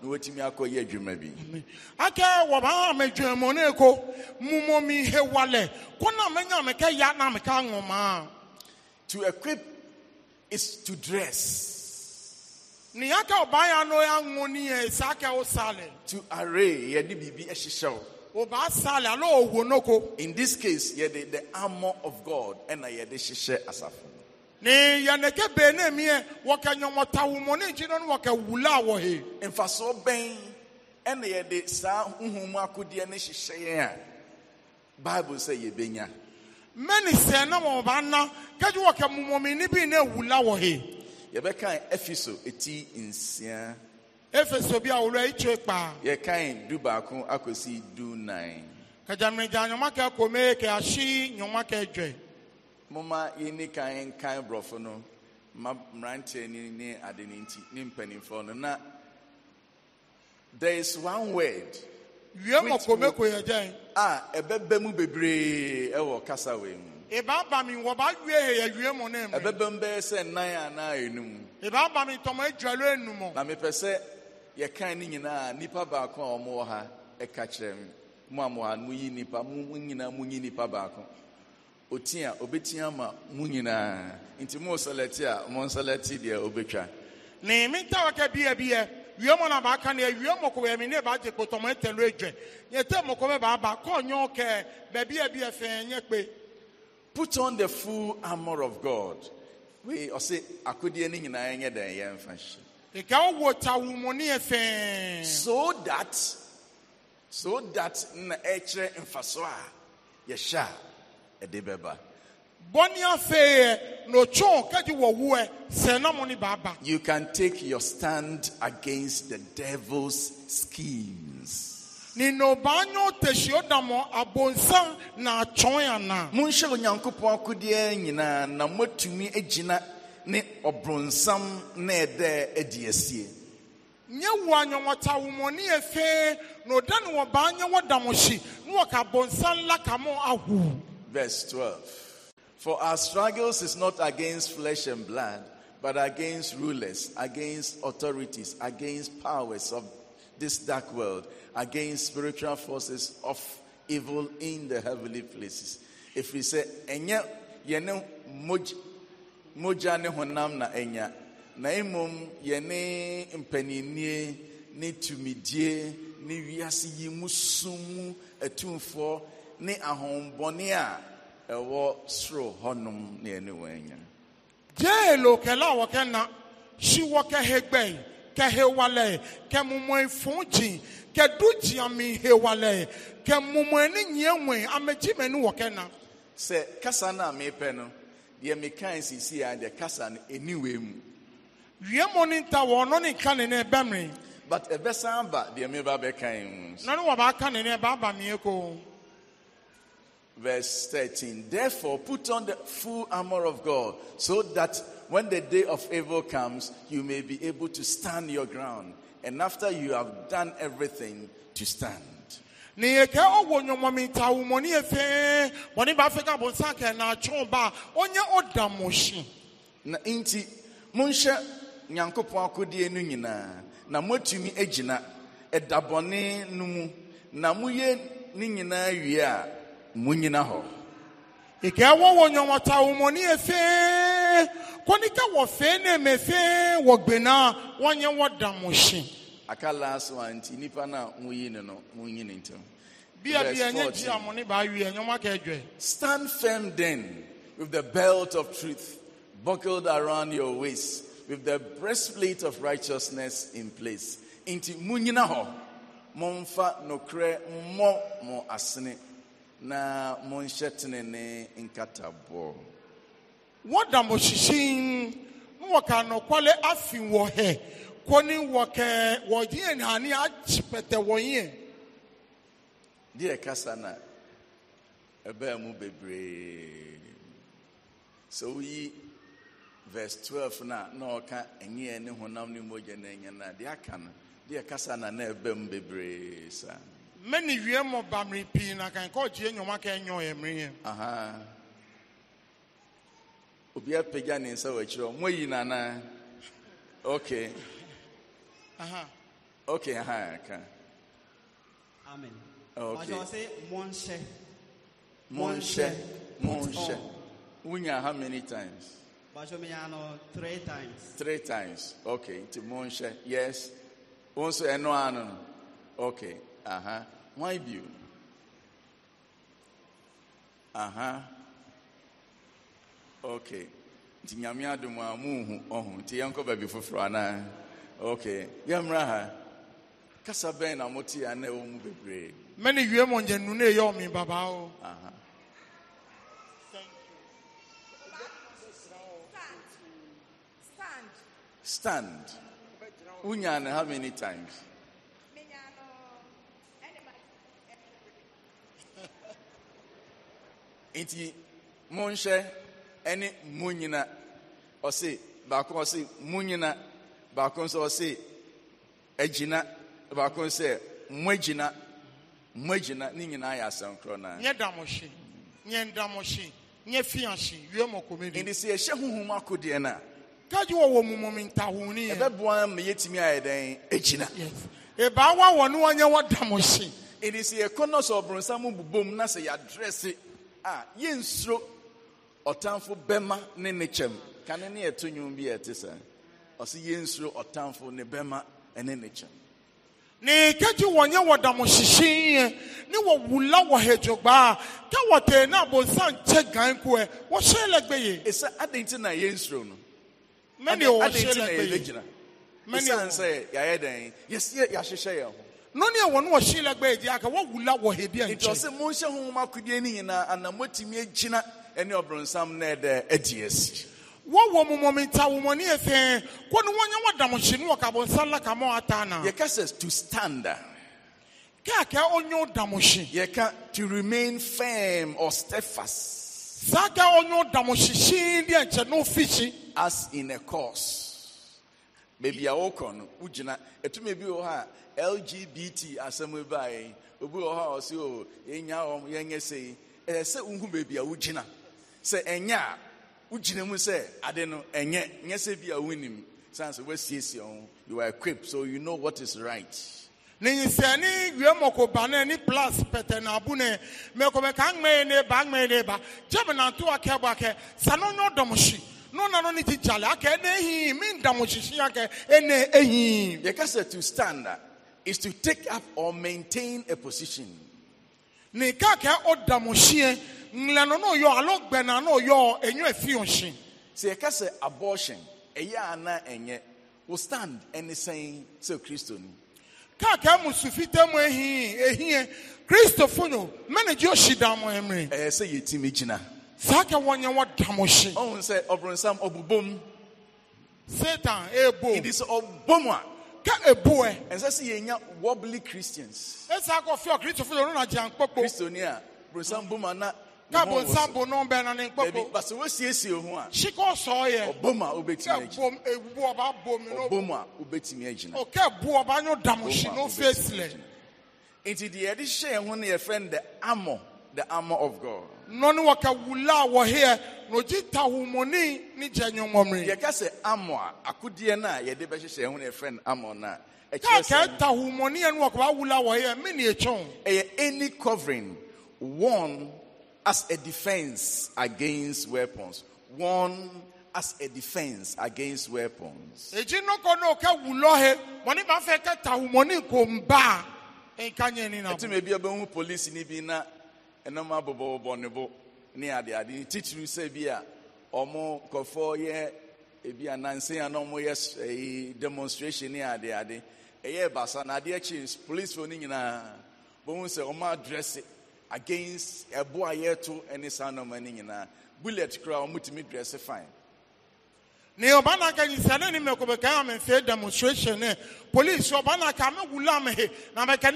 na watumi akɔ yɛ adwuma bi. akɛ wɔba ama adwuma ne ko mumu mi hewale ko na mɛ nya mɛ kɛ ya na mɛ kɛ aŋɔ maa. to equip is to dress. nìyàkẹ́ ọba yà nọ yà ń ní yẹn to array yẹ di bìbí e o. ọba sálẹ̀ alo in this case yẹ de the armor of God ẹna yẹ de asafo. ni yanneke bẹ́ẹ̀ni mi yẹ wọ́kẹ́ nyọmọ̀tawùmọ̀ ní ìjìnlẹ̀ ní wọ́kẹ́ wùlá nfaso saa bible yɛbɛkan efeso eti nsia. efeso bi a wòlò etwe kpa. yɛkan du baako akosi du nan. kajamijan nyɔma kɛ kome kɛ asi nyɔma kɛ dwɛ. moma yɛni kan kan borɔfo no ma mmeranteɛ ni ne ade ne nti ne mpanimfoɔ no na there is one word. wie mɔkome ko yɛ dɛn. a ɛbɛbɛ mu bebree ɛwɔ kasa wɛ mu. Eba aba mi wɔ ba wie he ewie mu ne mu. Ɛbɛbɛ m bɛyɛ sɛ nan anaa enum. Eba aba mi tɔmɔ edualo enum. Na mepɛ sɛ yɛkan ne nyinaa nipa baako a wɔwɔ ha ɛka kyerɛ mi. Mo a mo yi nipa mo nyinaa mo yi nipa baako. Otia obetia ma mo nyinaa nti mo nsɛlɛti a mo nsɛlɛti deɛ obetwa. Ne mi ta wakɛ bie bie. wie mo na baaka na ewie mo ko yɛmi ne baagye kpotɔmɔ etelu edwɛ. Yɛtɛ mo ko bɛ baaba kɔɔ nyɔɔ kɛ bɛbi ebi efɛn nye kpe. Put on the full armor of God. We ɔsɛ akodeɛ no nyinaa nyɛ dɛn yɛn mfa hyi. Ɛga wɔ tawumoni So that so that na ɛkyerɛ mfaso a yɛhyɛ a ɛde bɛba. Bɔnni afɛɛ n'otwɔn kadi wɔ wuɛ sɛnɛmo ni baaba. You can take your stand against the devil's schemes monhyɛ onyankopɔn akodeɛ nyinaa na moatumi agyina ne ɔbronsam na ɛdɛ adi asie nyɛ wo anwɔnwɔta womɔne yɛ fee na ɔda ne wɔbaa nyɛ wɔda mo na wɔka bɔnsan la mo ahu verse 12 for our struggles is not against flesh and blood but against rulers against authorities against powers of this dark world against spiritual forces of evil in the heavenly places. If we say, Enya, Yene Moja ne Honam na Enya, Naimum Yene Impeninie, ni Tumidie, Ne Viasi Yimusumu, Etumfo, Ne Ahombonia, Ewo Sro Honum, Ne Enya. Jelo Kela Wakena, She Waka Hegben kɛ hewalɛ ye kɛ mumɔe fun dzi kɛ du dziami hewalɛ ye kɛ mumɔe ni nyie ŋue ame dzime nu wɔ kasa na mi pɛ no deɛ mi kan sisi ya deɛ kasa no eniwe mu. wiemɔ ni ta wɔ ɔnɔ ni ka ne ne bɛ mi. but ɛbɛsan aba deɛ mi ba bɛ kan mu. nɔni wɔ b'a ka ne ba ba mi ye Verse 13, therefore put on the full armor of God so that when the day of evil comes, you may be able to stand your ground. And after you have done everything, to stand. ne yɛ kɛ ɔwɔ nyɔmɔmi ta yɛ mɔni b'a fɛ ka bɔ kɛ na chumba, ba ɔnyɛ ɔda na nti monhyɛ nyankopɔn akodie no nyinaa na moatumi agyina ɛdabɔne no mu na moyɛ ne nyinaa wie a monyina hɔ. ìkẹ́ wọ́wọ́ nyɔmɔta awomɔni yɛ fɛn. Konika wo fe wo mo no ji ba wi Stand firm then with the belt of truth buckled around your waist with the breastplate of righteousness in place. Into munyina ho momfa nokre mmɔ mo asene na monhyɛ tenene nkataboɔ. wɔda mo hyehyen mo wɔ ka nɔkwale afi wɔ hɛ kɔni wɔ kɛ wɔ yie kasa na e mu bebree sɛ woyi verse twelve na na ɔka ɛnyɛ ne honam na ɛnyɛ na deɛ aka kasa na na ɛbɛn e mu bebree saa. mmɛ ne pii na enyo obi apagya ne nsa wɔ akyirɛ ɔ moayi nanaa okay aha okay aha ka amen okay sɛ monhyɛ monhyɛ monhyɛ wonya how many times no Three times. Three times. Okay. To Monshe. Yes. Also, no, no. Okay. aha huh. Why you? Uh huh. okay nti nyame adom a muhu ɔho nti yɛnkɔ baabi foforɔ anaa okay yɛmmra ha kasa bɛn na mote a na ɛwɔ mu bebree mɛne wie mɔ nyɛ nu ne ɛyɛ ɔme babaa o stand wonya no how many times nti monhyɛ ɛne mu nyina ɔse baako ɔse mu nyina baako nso ɔse agyina baako nso sɛ mo agyina mo agyina ne nyinaa yɛ asɛm korɔ naa nyɛ damo hye nyɛ ndamo hye nyɛ fia hye wie mɔ kɔmɛdi nti sɛ yɛhyɛ honhom akodeɛ no a kagye wɔwɔ mumom ntahoni ɛbɛboa ma yɛtumi a dɛn agyina ɛbaawa wɔ ne wɔnyɛ wɔ damo hye nti sɛ yɛkɔ nɔ sɛ ɔboronsam bobom na sɛ yɛadrɛse a yɛnsuro ɔtamfo bɛma ne ne kyɛm kane ne yɛto nwom bi ɔsɛ yɛnsuro ɔtamfo ne bɛma ne kyɛm ne kɛgye wɔnyɛ ne wɔwula wɔ ka na abɔnsa nkyɛ gan koɛ wɔhyɛ lɛgbɛ ye ɛsɛ adɛn nti na yɛnsuro no mɛne wɔhyɛ sɛ yɛayɛ dɛn yɛsɛ yɛahyehyɛ yɛn ho nɔni a wɔn wɔ lɛgbɛ ye aka wɔwula wɔ a monhyɛ no nyinaa ana agyina ɛne ɔbronsam na ɛdɛ adi asi wɔwɔ mumɔmenta womɔne yɛ kɔ ne wɔnyɛ wɔdamhye no wɔkabɔnsa la ka ma na yɛka sɛ to stand kɛakɛ ɔnyɛ wodamhye yɛka to remain firm or steadfast saa kɛ ɔnyɛ wodamhye hyee deɛ nkyɛ no ofihyi as in a course baabi a wɔkɔ no wogyina ɛtumi bi wɔ hɔ a lgbt asɛm baeɛ obi wɔ hɔ a ɔse o yɛnya wɔm yɛnyɛ sɛi ɛyɛ wohu baabi a wogyina sɛ ɛnyɛ a wogyina mu sɛ ade no ɛnyɛ nyɛ sɛ bi a wonim san sɛ woasiesie ho you are equipped so you know what is right ne nsɛne wie mɔko plas pɛtɛ na abu ne mɛkɔmɛ ka aŋmɛ ne ba aŋmɛ ne ba gyɛm nanto akɛ bɔ akɛ sa no nyɛ ɔdɔm hyi no na no ne ti gyale akɛ ne ehi mi ndam hyehye akɛ ɛne ehi yɛka sɛ to stand is to take up or maintain a position ne ka akɛ ɔdam nlɛno no yɔ alo gbɛna no yɔ enyo se ohyin. sɛ yɛka sɛ abortion ɛyɛ ana ɛnyɛ o stand ɛne sɛn sɛ kristo ni. káàkiri musufita mu ehin ehin kristofo no mɛnɛgye ohyi dan mu ɛmiri. e se yɛ ti mi gyina. saa kɛ wɔn nyɛ wɔn dam ohyin. ɔhun sɛ ɔbɔnsam ɔbubom. satan ebo. it is ɔbom a. ka ebu ɛ. ɛnsɛ sɛ yɛn nya wobbly christians. e akɔfɛ ɔ kristofo yɛ ɔno na jɛ ankpɔkpɔ. kristo ni a bɔnsam bom a na káàbọ̀ nsambo náà bẹ́ẹ̀ náà ní nkpọ́kọ́. bẹẹbi bàtà wọ́n siesie ho a. sikọ́ sọ yẹ. ọbọ̀mà o bẹ tìmí ẹ̀jìnà. ọba bọ̀ mi ọbọ̀mà bu ọba yóò dàmú sí di ho ni yẹ the armour the armour of God. Noni wọ́n kẹ́ wula wọ̀ hẹ́ẹ́ ni jenyo nyọ́mọ́mìrì. yẹ ká sẹ armour akudiẹ náà yẹde bẹ hyehyẹ ho ni yẹ fẹ armour náà. ẹ yẹ any covering one as a defense against weapons. One as a defense against weapons. ɛti ne ebi demonstration ne adeade ɛyɛ against ɛbo a yɛto ne saa nneɛma no nyinaa bullet koraa wɔmutumi drɛse fine ne ɔba na aka nyinsane ne mɛkɔbɛkae a demonstration police ɔba na aka mɛwula me na me na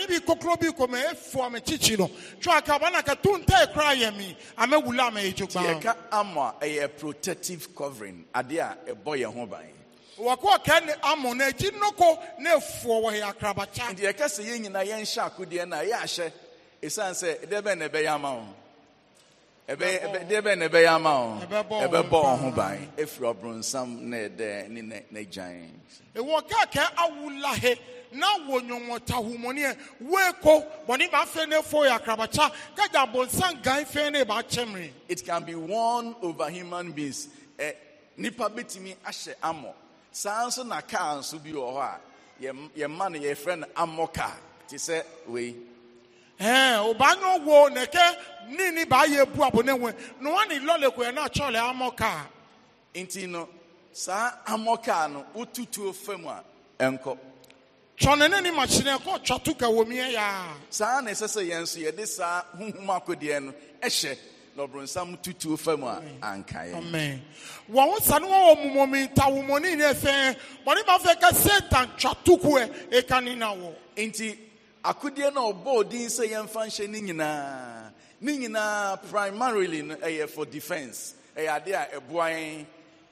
me amɛwula me ɛgyo gbaa ama protective covering a ne na akyi nnoko na ɛfoɔ wɔ nti esan sɛ ɛdeɛ bɛn na ɛbɛyɛ ama wɔn ɛbɛyɛ ɛdeɛ bɛn na ɛbɛyɛ ama wɔn ɛbɛbɔ wɔn ho ban efiri ɔbronsam na ɛdɛ ne ne ne gyan. awulahe kaakɛ awula he na wɔ nyɔnwɔta humɔniɛ woeko bɔnni b'a fɛ ne fo ya karabacha kaja bonsan gan fɛn ne b'a cɛ miri. it can be worn over human beings ɛ nipa ti bitumi ahyɛ amɔ saa nso na kaa nso bi wɔ hɔ a yɛ yɛ ma no yɛfrɛ no amɔ kaa te sɛ wei. ee ụbanya ụgwọ na eke niile bụ ahịa ebu abụ na-enwe n'ụwa na ilolekwe na achọle amọka nti no saa amọka no wotutuo fam a ɛnkɔ twɔne ne ne makyene ɛkɔ twa to ka wɔ miɛ ya. saa na ɛsɛ sɛ yɛn nso yɛde saa honhom akodeɛ no ɛhyɛ na ɔbronsam tutuo fam a anka yɛ wɔn ho sa ne wɔwɔ mumɔmi tawomɔne ne ɛfɛ bɔne ba fɛ ka satan twa tokoɛ e ɛka ne na wɔ nti akudie na ɔbɔ odin sɛ yɛmfa nhyɛ ne nyinaa ne nyinaa primarily no ɛyɛ for defense ɛyɛ adeɛ a ɛboa yɛn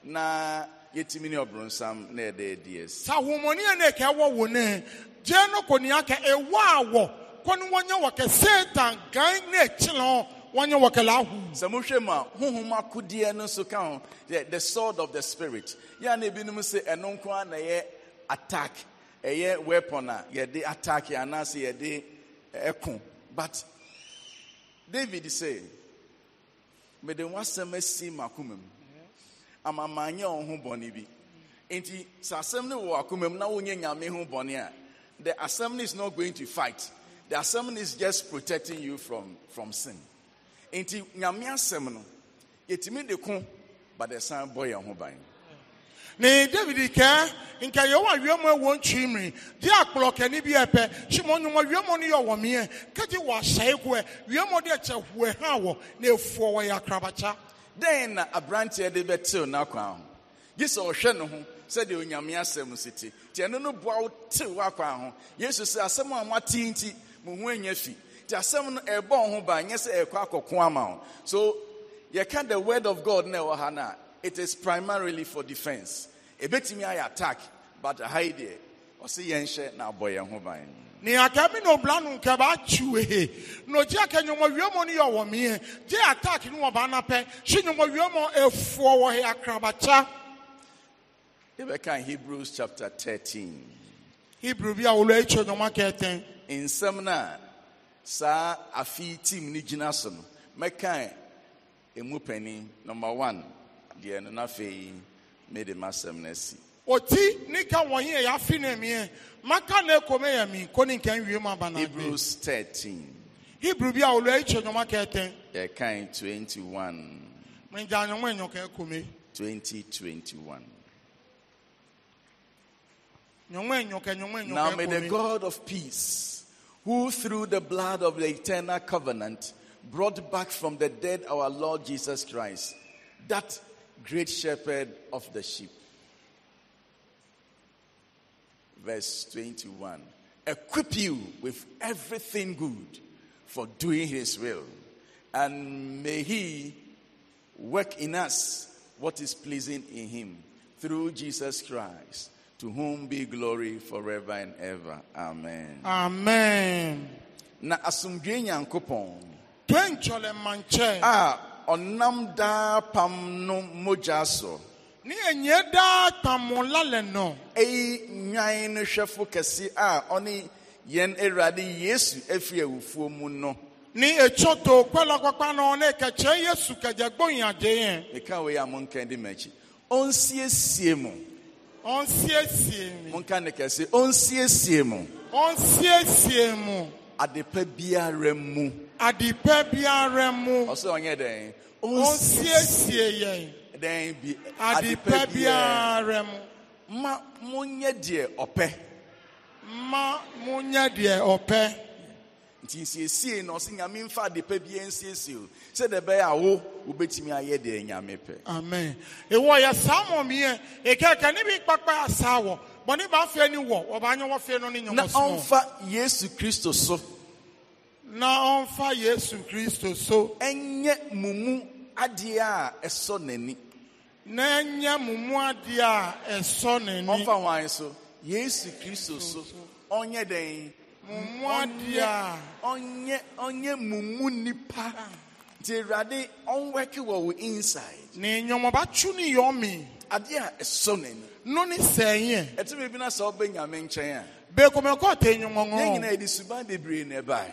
na yɛtumi ne ɔbronsam na yɛde adi asi sɛ ahomɔne a na ɛka ɛwɔ wo ne gyeɛ no kɔnea ka ɛwɔ a wɔ kɔ no wɔnyɛ wɔkɛ satan gan na ɛkyele ho wɔnyɛ wɔkɛ laahu sɛ mohwɛ mu a honhom akodeɛ no nso ka ho the sword of the spirit yɛa na ebinom sɛ ɛno nko a na ɛyɛ attack ɛyɛ weapon a yɛde attack anaasɛ yɛde eh, ɛko but david sɛ mede w'asɛm asi m'akoma mu ama manyɛ wo ho bɔne bi nti sɛ asɛm no wɔ akoma mu na wonyɛ nyame ho bɔne a the assembly is not going to fight the assembly is just protecting you from, from sin nti nyame asɛm no yɛtumi de ko but ɛsan bɔ yɛn ho ban ne david kɛ nka yɛ wɔ awiamu ɛwɔ ntwi mmiri di akplɔ kɛni bi ɛpɛ simɔ nyuma awiamu ni yɛ wɔ miɛ kɛgye wɔ asɛe koɛ awiamu de kyɛ hoɛ hã wɔ na efuɔ wɔ yɛ akrabakya. dɛn na aberanteɛ de bɛ tew n'akwan ho yi sɛ ɔhwɛ ne ho sɛdeɛ onyame asɛm si te nti ɛno no boa wo tew w'akwan ho yesu sɛ asɛm a moate nti mo ho anya fi nti asɛm no ɛbɔ wo ho ba nyɛ sɛ ɛkɔ akɔko ama wo so yɛka the word of god na ɛwɔ ha no a it is primarily for defense ebetumi ayɛ attack but ha yi ɔsi yɛn hyɛ na abɔ yɛn ho ban. ní akẹ́mi ní obìnrin ni yọ wọ̀ jẹ́ attack ni wọ́n bá ná pẹ́ ṣé nyọ̀mọ̀ wíọ́mọ̀ efuọ wọ̀ hẹ́ ebe kan Hebrews chapter thirteen. Hebrew bi a saa afi ni gyina so no emu panyin number one mede m'asɛm no asi ɔti ne ka wɔnye yɛ afi ne miɛ maka ne kome yɛ mi ko ne nka nwie mu aba hebrews 13 hebrew bi a olu ayi kyɛ nyɔma kɛtɛn yɛ kan 21 mɛgya nyɔma nyɔ kɛ kome 2021 Now may the God of peace, who through the blood of the eternal covenant brought back from the dead our Lord Jesus Christ, that great shepherd of the sheep. Verse 21 Equip you with everything good for doing his will, and may he work in us what is pleasing in him through Jesus Christ, to whom be glory forever and ever. Amen. Amen. Na asumdwe nyankopɔn. Twen chole manche. Ah, ɔnam daa pam no mogya so. ne enye daa pam la le nɔ. nwan no hwɛfo kɛse a ɔne yɛn awurade yesu efi awufuo mu no. ní ètò tó pẹ́lú pápá náà ní yéṣu kẹ̀jẹ̀ gbóyìn àjẹ́ yẹn. nìkan wo yà mú nǹkan di mẹ́kì ó ń mu. ó ń mú nǹkan ní kẹ̀sí ó ń siesie mu. ó ń siesie mu. adepa biara mu adepa biara mu ɔsɛ ɔnyɛ dɛn ɔnsiesie yɛn dɛn bi adepa biara mu ma monyɛ deɛ ɔpɛ ma monyɛ deɛ ɔpɛ nti nsiesie na ɔsɛ nyame mfa adepa biara nsiesie o sɛdeɛ ɛbɛyɛ a wo wobɛtumi ayɛ deɛ nyame pɛ amen Ewo yɛ saa mmɔmeɛ ɛkɛkɛ ne bi kpakpa asaa wɔ bɔne ba afei ni wɔ ɔbaanyɛ wɔ fei no ne so na ɔmfa yesu kristo so na ɔmfa yesu kristo so ɛnyɛ mo mu adeɛ a ɛsɔ n'ani na ɛnyɛ mo mu adeɛ a ɛsɔ n'ani ɔmfa hwan so yesu kristo so ɔnyɛ dɛn mo mu adeɛ a ɔnyɛ ɔnyɛ mo mu nipa nti awurade ɔnwɛke wɔ wo inside ne nnwomabatu ne yɔmi adeɛ a ɛsɔ n'ani no ne sɛnyɛ ɛtumi bi na sɛ ɔbɛ nyame nkyɛn a bɛkɔmɛkɔ ɔtɛ nnwomɔnwɔ yɛn nyinaa yɛde suban bebree na ɛbae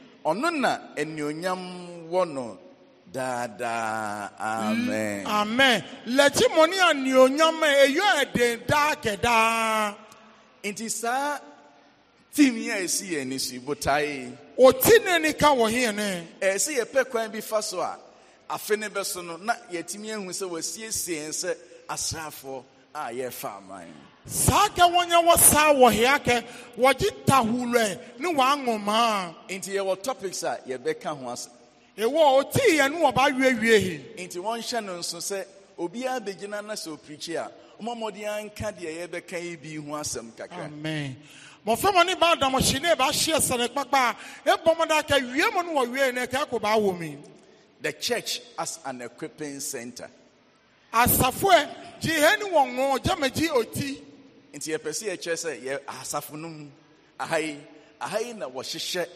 ɔno na anuonyam wɔ no daadaa amen. Mm, amen lɛkyi mo ni anuonyam eyo ɛden daa kɛdaa. nti saa Timi yi a esi yɛn ni si botae. oti ne ni ka wɔ hɛn ne. ɛsi yɛ pɛ kwan bi fa so a afe ne bɛ so no na yɛtumi ehu sɛ wɔsiesie nsɛ asraafoɔ a yɛfa aman. saa ka wɔnyɛ wɔ saa wɔ hea kɛ wɔgye tahulɛ ne wɔaŋɔmaa nti yɛwɔ topics a yɛbɛka ho ase ɛwɔ ɔtii yɛ no wɔba awiewie hi nti wɔnhyɛ no nso sɛ obiara bɛgyina na sɛ ɔpirikyi a ɔmamɔde anka deɛ yɛbɛka yi bi ho asɛm kakra amen mɔframa ne baa damɔhye ne ɛbɛahyeɛ sɛne kpakpa a ɛbɔ mɔda aka wie mu no wɔwie no ɛka kɔ baa wɔ mi the church as an equipping center asafoɛ gye hɛ ne wɔ ŋɔ gyamagye ɔti nti yɛpɛ sɛ yɛkyerɛ sɛ yɛ asafo no mu aha yi na wɔhyehyɛ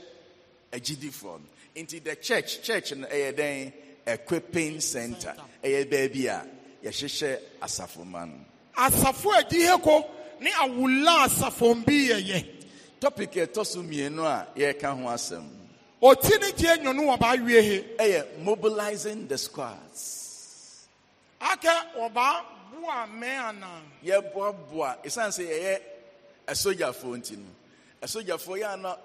agyidifoɔ no nti the church church no ɛyɛ dɛn equipping center ɛyɛ baabi a yɛhyehyɛ asafo ma no asafo adihe ko ne awola asafo bi yɛyɛ topic ɛtɔ so mmienu a yɛreka ho asɛm ɔti ne gye nwono wɔba awie he ɛyɛ mobilizing the squads aka wɔba aboa mmɛn anan. yɛboaboa esan se yɛyɛ asogyafoɔ nti no asogyafoɔ yɛ ana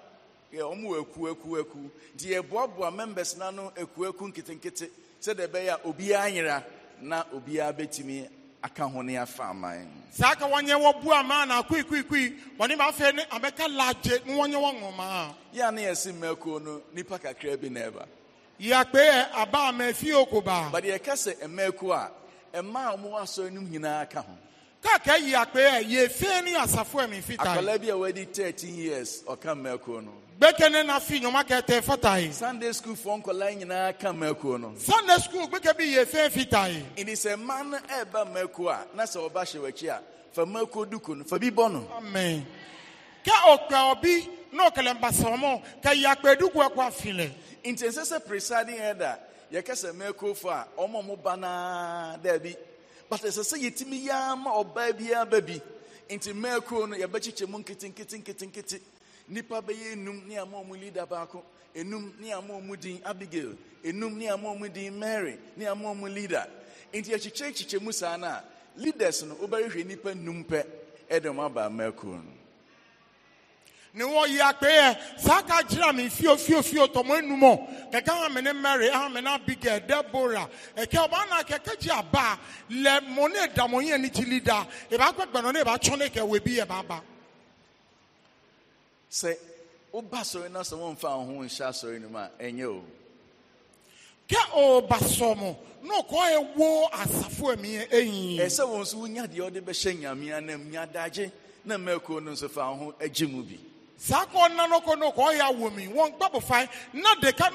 yɛ wɔn wɔ eku eku eku nti yɛboaboa members n'ano eku eku nketenkete sɛdeɛ ɛbɛyɛ a obiara nyera na obiara bɛtumi aka ho ne afa aman. saa ka wɔn nyɛ wɔ bu aman na kui kui kui wɔn ne ma fɛ ne abɛka laagye ne wɔn nyɛ wɔn ŋɔmaa. yɛ ana yɛ si mmɛkuo no nipa kakra bi na ɛba. yàgbé ẹ abá àmẹ fí okòbá. bàdìyẹ kẹsẹ ẹmẹkọ a mmaa a so asɔre no nyinaa ka ho káàkiri yìí àpè ẹ yìí ya ní àsàfo ẹ̀mí fita yìí. akọlẹ bi a wadi di thirteen years ọ̀ka mẹ́kọ̀ọ́ nù. gbẹ́kẹ̀lé na fi yọ̀mọ́ kẹtẹ fata yìí. sunday school fún nkọla nyinaa ka mẹ́kọ̀ọ́ nù. sunday school gbẹ́kẹ̀ bi yìí fín fita yìí. ní bá a náà ọba ṣe a nù bí nù. amen náà yɛkɛsɛ mɛkofo a ɔmo ɔmo ba naa daabi but ɛsɛ sɛ yɛtumi yaa ma ɔbaa biara ba bi nti mɛko no yɛbɛkyekyɛ mu nketenketenketenkete Nipa bɛyɛ enum ne ama ɔmo leader baako enum ne ama ɔmo din abigail enum ne ama ɔmo din mary ne ama ɔmo leader nti yɛkyekyɛ kyekyɛ mu saa no lidas leaders no wobɛhwehwɛ nipa num pɛ ɛde ɔmo aba mɛko no ne wɔyi akpɛɛ jira mi fio fio fio tɔmɔ enumɔ kɛkɛ hame ne mary hame ne abigail debora ɛkɛ ɔba na kɛkɛ gye aba lɛ mɔ ne da mɔ yɛn ne da eba akpɛ gbɛnɔ ne eba tsɔ ne kɛ webi yɛ ba sɛ woba sɔrɔ na sɛ wɔn fa ɔho nhyɛ asɔrɔ no mu a ɛnyɛ o. kɛ ɔba sɔmɔ na ɔkɔ ewo asafo ɛmi ɛyin. ɛsɛ wɔn nso wonya deɛ ɔde bɛhyɛ nyamea nam nyadagye na mɛko no nso fa ɔho agye mu bi. saa na deka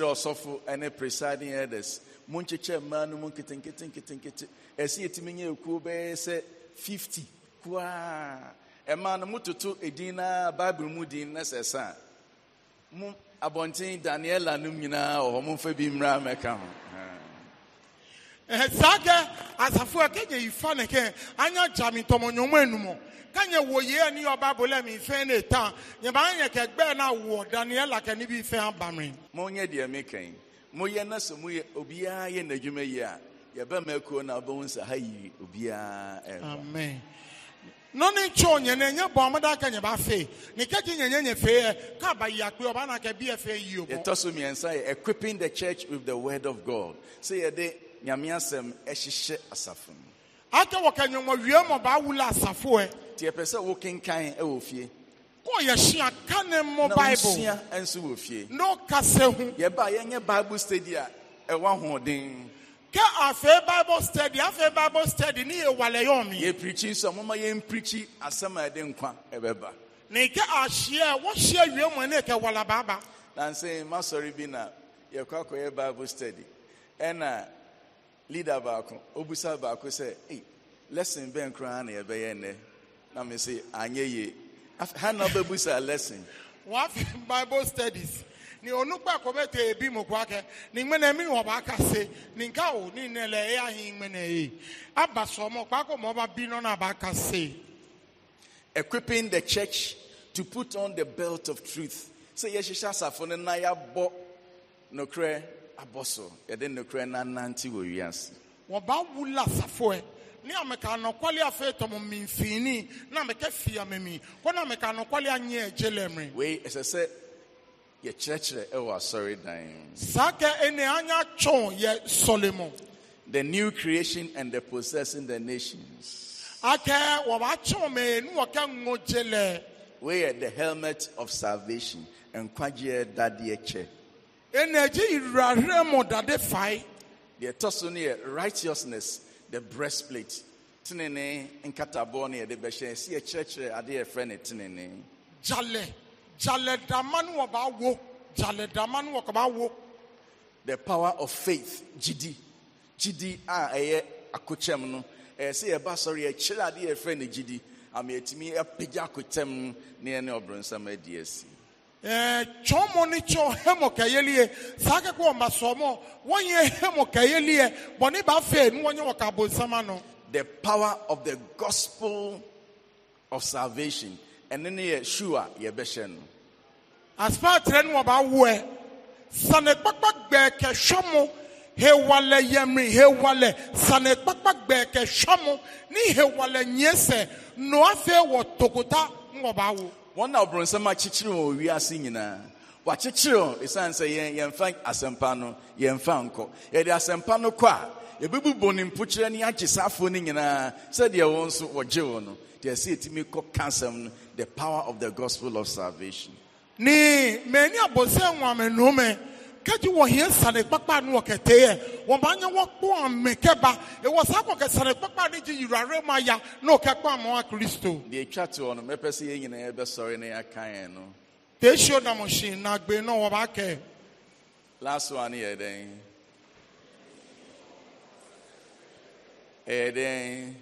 ɔsɔfo ɛne presiding elders mo mmaa no mu nketenkete nketenkete etimi nye bɛyɛ sɛ fifty kuaa ɛmaa no mototo mu din na sɛ mo abɔnten daniela nom nyinaa wɔ hɔ momfa bi mmra mɛka ho saa a anya kanye wo ye ni ọba bolẹ mi fẹ ne tan nyaba nye kẹgbẹ na wọ daniel akẹ níbi fẹ abami. mo nye deɛ mi kɛn mo yɛ na sɛ mo yɛ obiara yɛ n'adwuma yi a yɛbɛ mɛ kuro na ɔbɛn nsa ha yi obiara ɛfa. amen nɔni tso nyɛnɛ nye bɔn ɔmɔdé akɛ nyaba fɛ ni kɛkyi nyɛnyɛ nye fɛ yɛ kaba yi akpɛ ɔba na kɛ bi yɛ fɛ yi o. yɛtɔ so mmiɛnsa yɛ equipping the church with the word of god sɛ yɛde nyame asɛm ɛhyehyɛ asafo mu. akɛ wɔ kanyɔnmɔ wie mɔ baa wula asafo yɛ nti ɛpɛ sɛ e wɔ fie kɔyɛhyia ka ne mmɔ bible nso wɔ fie na ɔkasɛ ho yɛba yɛnyɛ bible study a ɛwɔ ahoɔden kɛ afei bible study afei bible study ne yɛwalɛ yɛ ɔme yɛpirikyi nso a moma yɛmpirikyi asema a ɛde nkwa ɛbɛba ne kɛ ahyia a wɔhyia wie mu ne kɛ wala baaba nanse masɔre bi na yɛkɔ akɔyɛ bible study ɛna leader baako obusa baako sɛ lesson bɛn koraa na yɛbɛyɛ nnɛ na me say anye ye ha na bebu sa lesson What bible studies ni onukpe akɔbɛtɔ ebi mokwake ni mene mi wɔ kase ni nka o ni nele eya hi ŋmɛnɛ ye aba sɔmɔ kpakɔ mɔ ba bi nɔna ba kase. equipping the church to put on the belt of truth sɛ yɛhyehyɛ asafo no na yɛabɔ nokorɛ abɔ kre yɛde nokorɛ no anante wɔ wiase wɔba wula asafoɛ ne ameka anɔkwale afei tɔmɔ mimfini na ameka fi amemi kɔ na ameka anɔkwale anyɛ agye lɛmre wei ɛsɛ sɛ yɛkyerɛkyerɛ ɛwɔ asɔre dan saa kɛ ɛne anya twɔn yɛ sɔle the new creation and the possessing the nations akɛ wɔbatwɔn mee ne wɔkɛ ŋo gye lɛ wei the helmet of salvation nkwagyeɛ dadeɛ kyɛ ɛna agye yirahwerɛ mu dade fae deɛ ɛtɔ so no righteousness the breastplate. Tenene nkataboɔ no yɛde bɛhyɛ si yɛkyerɛkyerɛ eh, adeɛ yɛfrɛ ne eh, tenene. Jale jale dama no wo jale dama no wo. The power of faith GD, gidi a ɛyɛ akokyɛm no ɛyɛ eh, sɛ yɛba sɔrɔ yɛkyerɛ adeɛ GD ne gidi e yɛtumi apagya akokyɛm no ne yɛne ɔbrɔnsam adi asi. Eh, chọmọ ni chọ hemọ kẹyẹliẹ sáké kó ọmọ sọmọ wọn yẹ hemọ kẹyẹliẹ bọ ní bá fẹ ní wọn yẹ wọn kà bọ nọ. the power of the gospel of salvation ẹni ni yẹ sure yẹ bẹ hyẹ no. asipaatirẹ ni wọn bá wọ ẹ sani kpakpa gbẹ kẹ sọmọ hewalẹ yẹmi hewalẹ sani kpakpa gbẹ kẹ sọmọ ní hewalẹ nyẹsẹ nọ afẹ wọ tòkòtà ń wọn wɔn na ɔbronsɛm akyekyere wɔn wiase nyinaa wakyekyere wɔn ɛsiane sɛ yɛn yɛmfa asɛmpa no yɛmfa nkɔ yɛde asɛmpa no kɔ a yɛbɛbubɔ ne mpokyerɛ ne agyesafoɔ no nyinaa sɛdeɛ wɔn nso wɔgye wɔn no deɛ ɛsɛ kɔ no the power of the gospel of salvation. ní mẹ́ni àbọ̀sẹ̀ wọn àmì kedzi wɔ hɛn sane kpakpa nu wɔ kɛtɛ yɛ wɔn ba nyɛ wɔ kpɔ ame kɛba ewɔ sa kɔ kɛ sane kpakpa ne dzi yura re ma ya ne wòkɛ kpɔ amewa kristo. di etwa te hɔ no mɛpɛ si yɛ nyinaa bɛ sɔre ne yaka yɛn no. teesio namusi nagbe na wɔba kɛ. last one yɛ dɛn ɛyɛ dɛn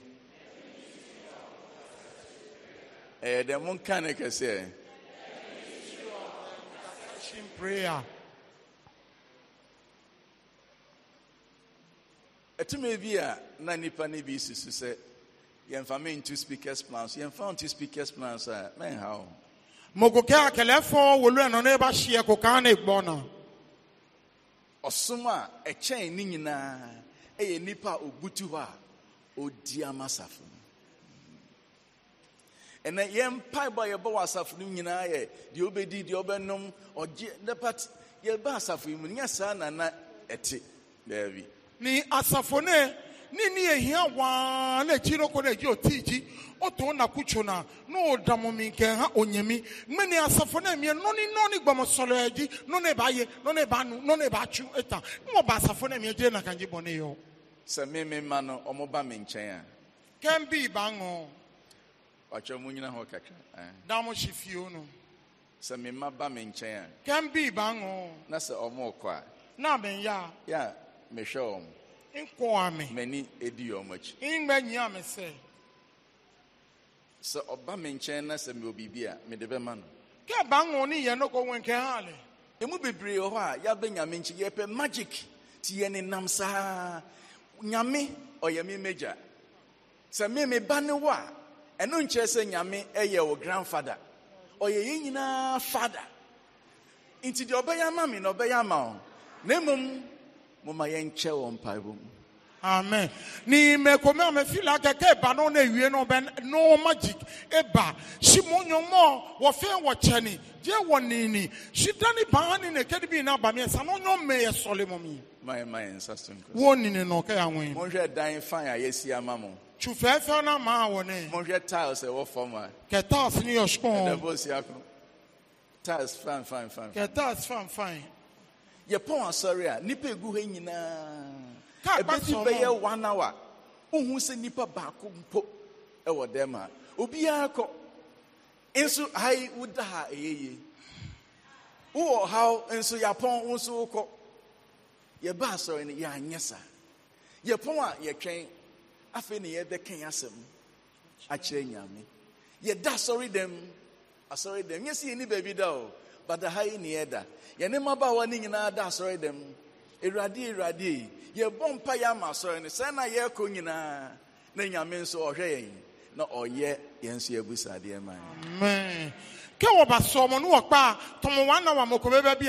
ɛyɛ dɛn mo nka ne kɛseɛ. prayer. ɛtumi bi a na nipa ne bi sisi sɛ yɛnfa mi ntu speakers plans yɛnfa ntu speakers plans a mɛn ha o. mokokɛ akɛlɛfɔ wolu ɛnɔ ne ba hyia kokan ne gbɔ na. ɔsom a ɛkyɛn ne nyinaa ɛyɛ nipa a obutu hɔ a odi ama asafo no ɛnna yɛn mpaebɔ a yɛbɔ wɔ asafo no nyinaa yɛ deɛ ɔbɛdi deɛ ɔbɛnom ɔgye ne yɛbɛ asafo yi mu nyɛ saa na na ɛte beebi. ni asafone nini ehia waa na ekyi no na egyi oti otu ọ na kutsu na na ɔdamu mi nke ha onyemi mmeni asafo na mie nɔni nɔni gbɔmɔsɔlɔ edi nɔni ba ye nọ ba nu nɔni ba tsu eta n ɔba asafo na mie die na kanji bɔ ne yɔ. sɛ mi mi ma no ɔmo ba mi nkyɛn a. kɛn bi ba ŋɔ. ɔtɔ mu nyina hɔ kakra. Eh. daamu si fio no. sɛ mi ma ba mi nkyɛn a. kɛn bi ba ŋɔ. na sɛ ɔmo kɔ a. na mi ya. ya. Yeah. mehwɛ wɔn nkoa me m'ani edi wɔn akyi ngba nyia me sɛ sɛ ɔba me nkyɛn na sɛ mewɔ biribi a mede bɛma no kɛ ba ha emu bebree wɔ hɔ a yɛabɛ nyame nkyi yɛpɛ magic ti yɛ nam saa nyame ɔyɛ me magya sɛ me meba ne a ɛno nkyerɛ sɛ nyame ɛyɛ wo grandfather ɔyɛ yɛn nyinaa fada. nti deɛ ɔbɛyɛ ama me na ɔbɛyɛ ama wo na moma yɛnkyɛ wɔn mpaebɔ mu amen ni mekome a mefila kɛkɛ eba no na ewie no bɛ no magic eba si mo nyɔmɔ wɔfɛn wɔkyɛni diɛ wɔ nini si dani paa ni ne kɛdi bi na ba mi ɛsa no nyɔ mɛ yɛ sɔle mo mi. maye maye nsa so nkɔ. wo nini na ɔkɛ anwen. mo n hwɛ dan fan a yɛsi ama mo. tu fɛɛfɛɛ na maa wɔ ne. mo n hwɛ tiles ɛwɔ fam a. kɛ tiles ni yɛ sukɔn. ɛdɛ bɔ si akɔ tiles fine fine fine. kɛ tiles fine fine yɛpɔn asɔre a nipa egu hɔ nyinaa ebesi bɛyɛ one hour ohun sɛ nipa baako mpo ɛwɔ dɛm a obiara kɔ nso ayi woda ha eyeye wowɔ haw nso yɛapɔn nso wokɔ yɛba asɔre no yɛanyɛ saa yɛpɔn a yɛtwɛn afei na yɛde kɛn asɛm akyerɛ nyame yɛda asɔre dɛm asɔre dɛm nyɛ sɛ yɛni baabi da o. but ha yi ni ɛda yɛne mmabaawa no nyinaa da asɔre dɛm awurade awurade yɛbɔ mpa yɛ ama asɔre no na yɛrekɔ nyinaa na nyame nso ɔhwɛ yɛn na ɔyɛ yɛn nso abusadeɛ ma yɛn ke wɔba sɔmɔ no wɔkpa tɔmɔ na wɔn bi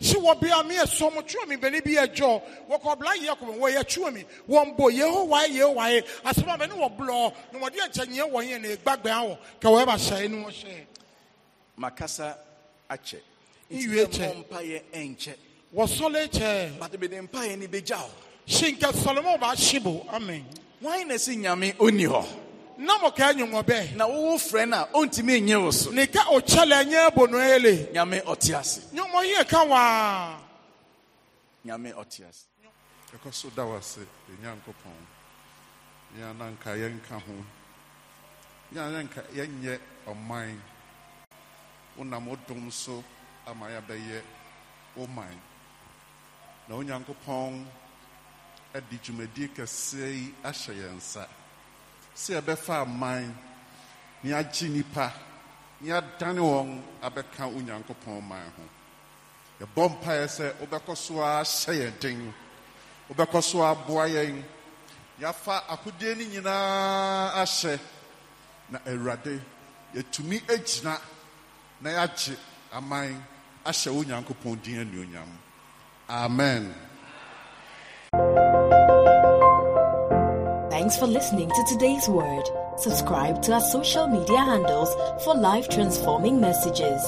si wɔ bɛni bi wɔkɔ wɔ yɛ wɔn bo yeho yeho bɛni wɔ blɔ nomɔdi ne awɔ wɔ akyɛ nwie kyɛ wɔsɔle kyɛ but bɛde mpaeɛ no bɛgya hɔ hye nka sɔlomɔ baahye bo amen wan na ɛsɛ nyame ɔnni hɔ na mo ka nyɛ wɔbɛ na wowo frɛ no a ɔntumi nye wo so ne ka ɔkyɛle ɛnyɛ abo no ele nyame ɔte ase nyɔmɔ yɛ ka waa nyame ɔte ase ɛkɔ so da wo ase ɛnyankopɔn e yɛn ananka yɛnka ho yɛn ananka nye ọman. wonam wo dom so ama yɛabɛyɛ wo man na onyankopɔn adi dwumadie kɛseɛ yi ahyɛ yɛn nsa sɛ yɛbɛfa man ne agye nnipa ne adane wɔn abɛka onyankopɔn man ho yɛbɔ mpaeɛ sɛ wobɛkɔ so ara hyɛ yɛn den wobɛkɔ so aboa yɛn yɛafa akodeɛ no nyinaa ahyɛ na awurade e yɛtumi agyina e na aman ahyɛ wo nyankopɔn din anuonyam amen Thanks for listening to today's word. Subscribe to our social media handles for life transforming messages.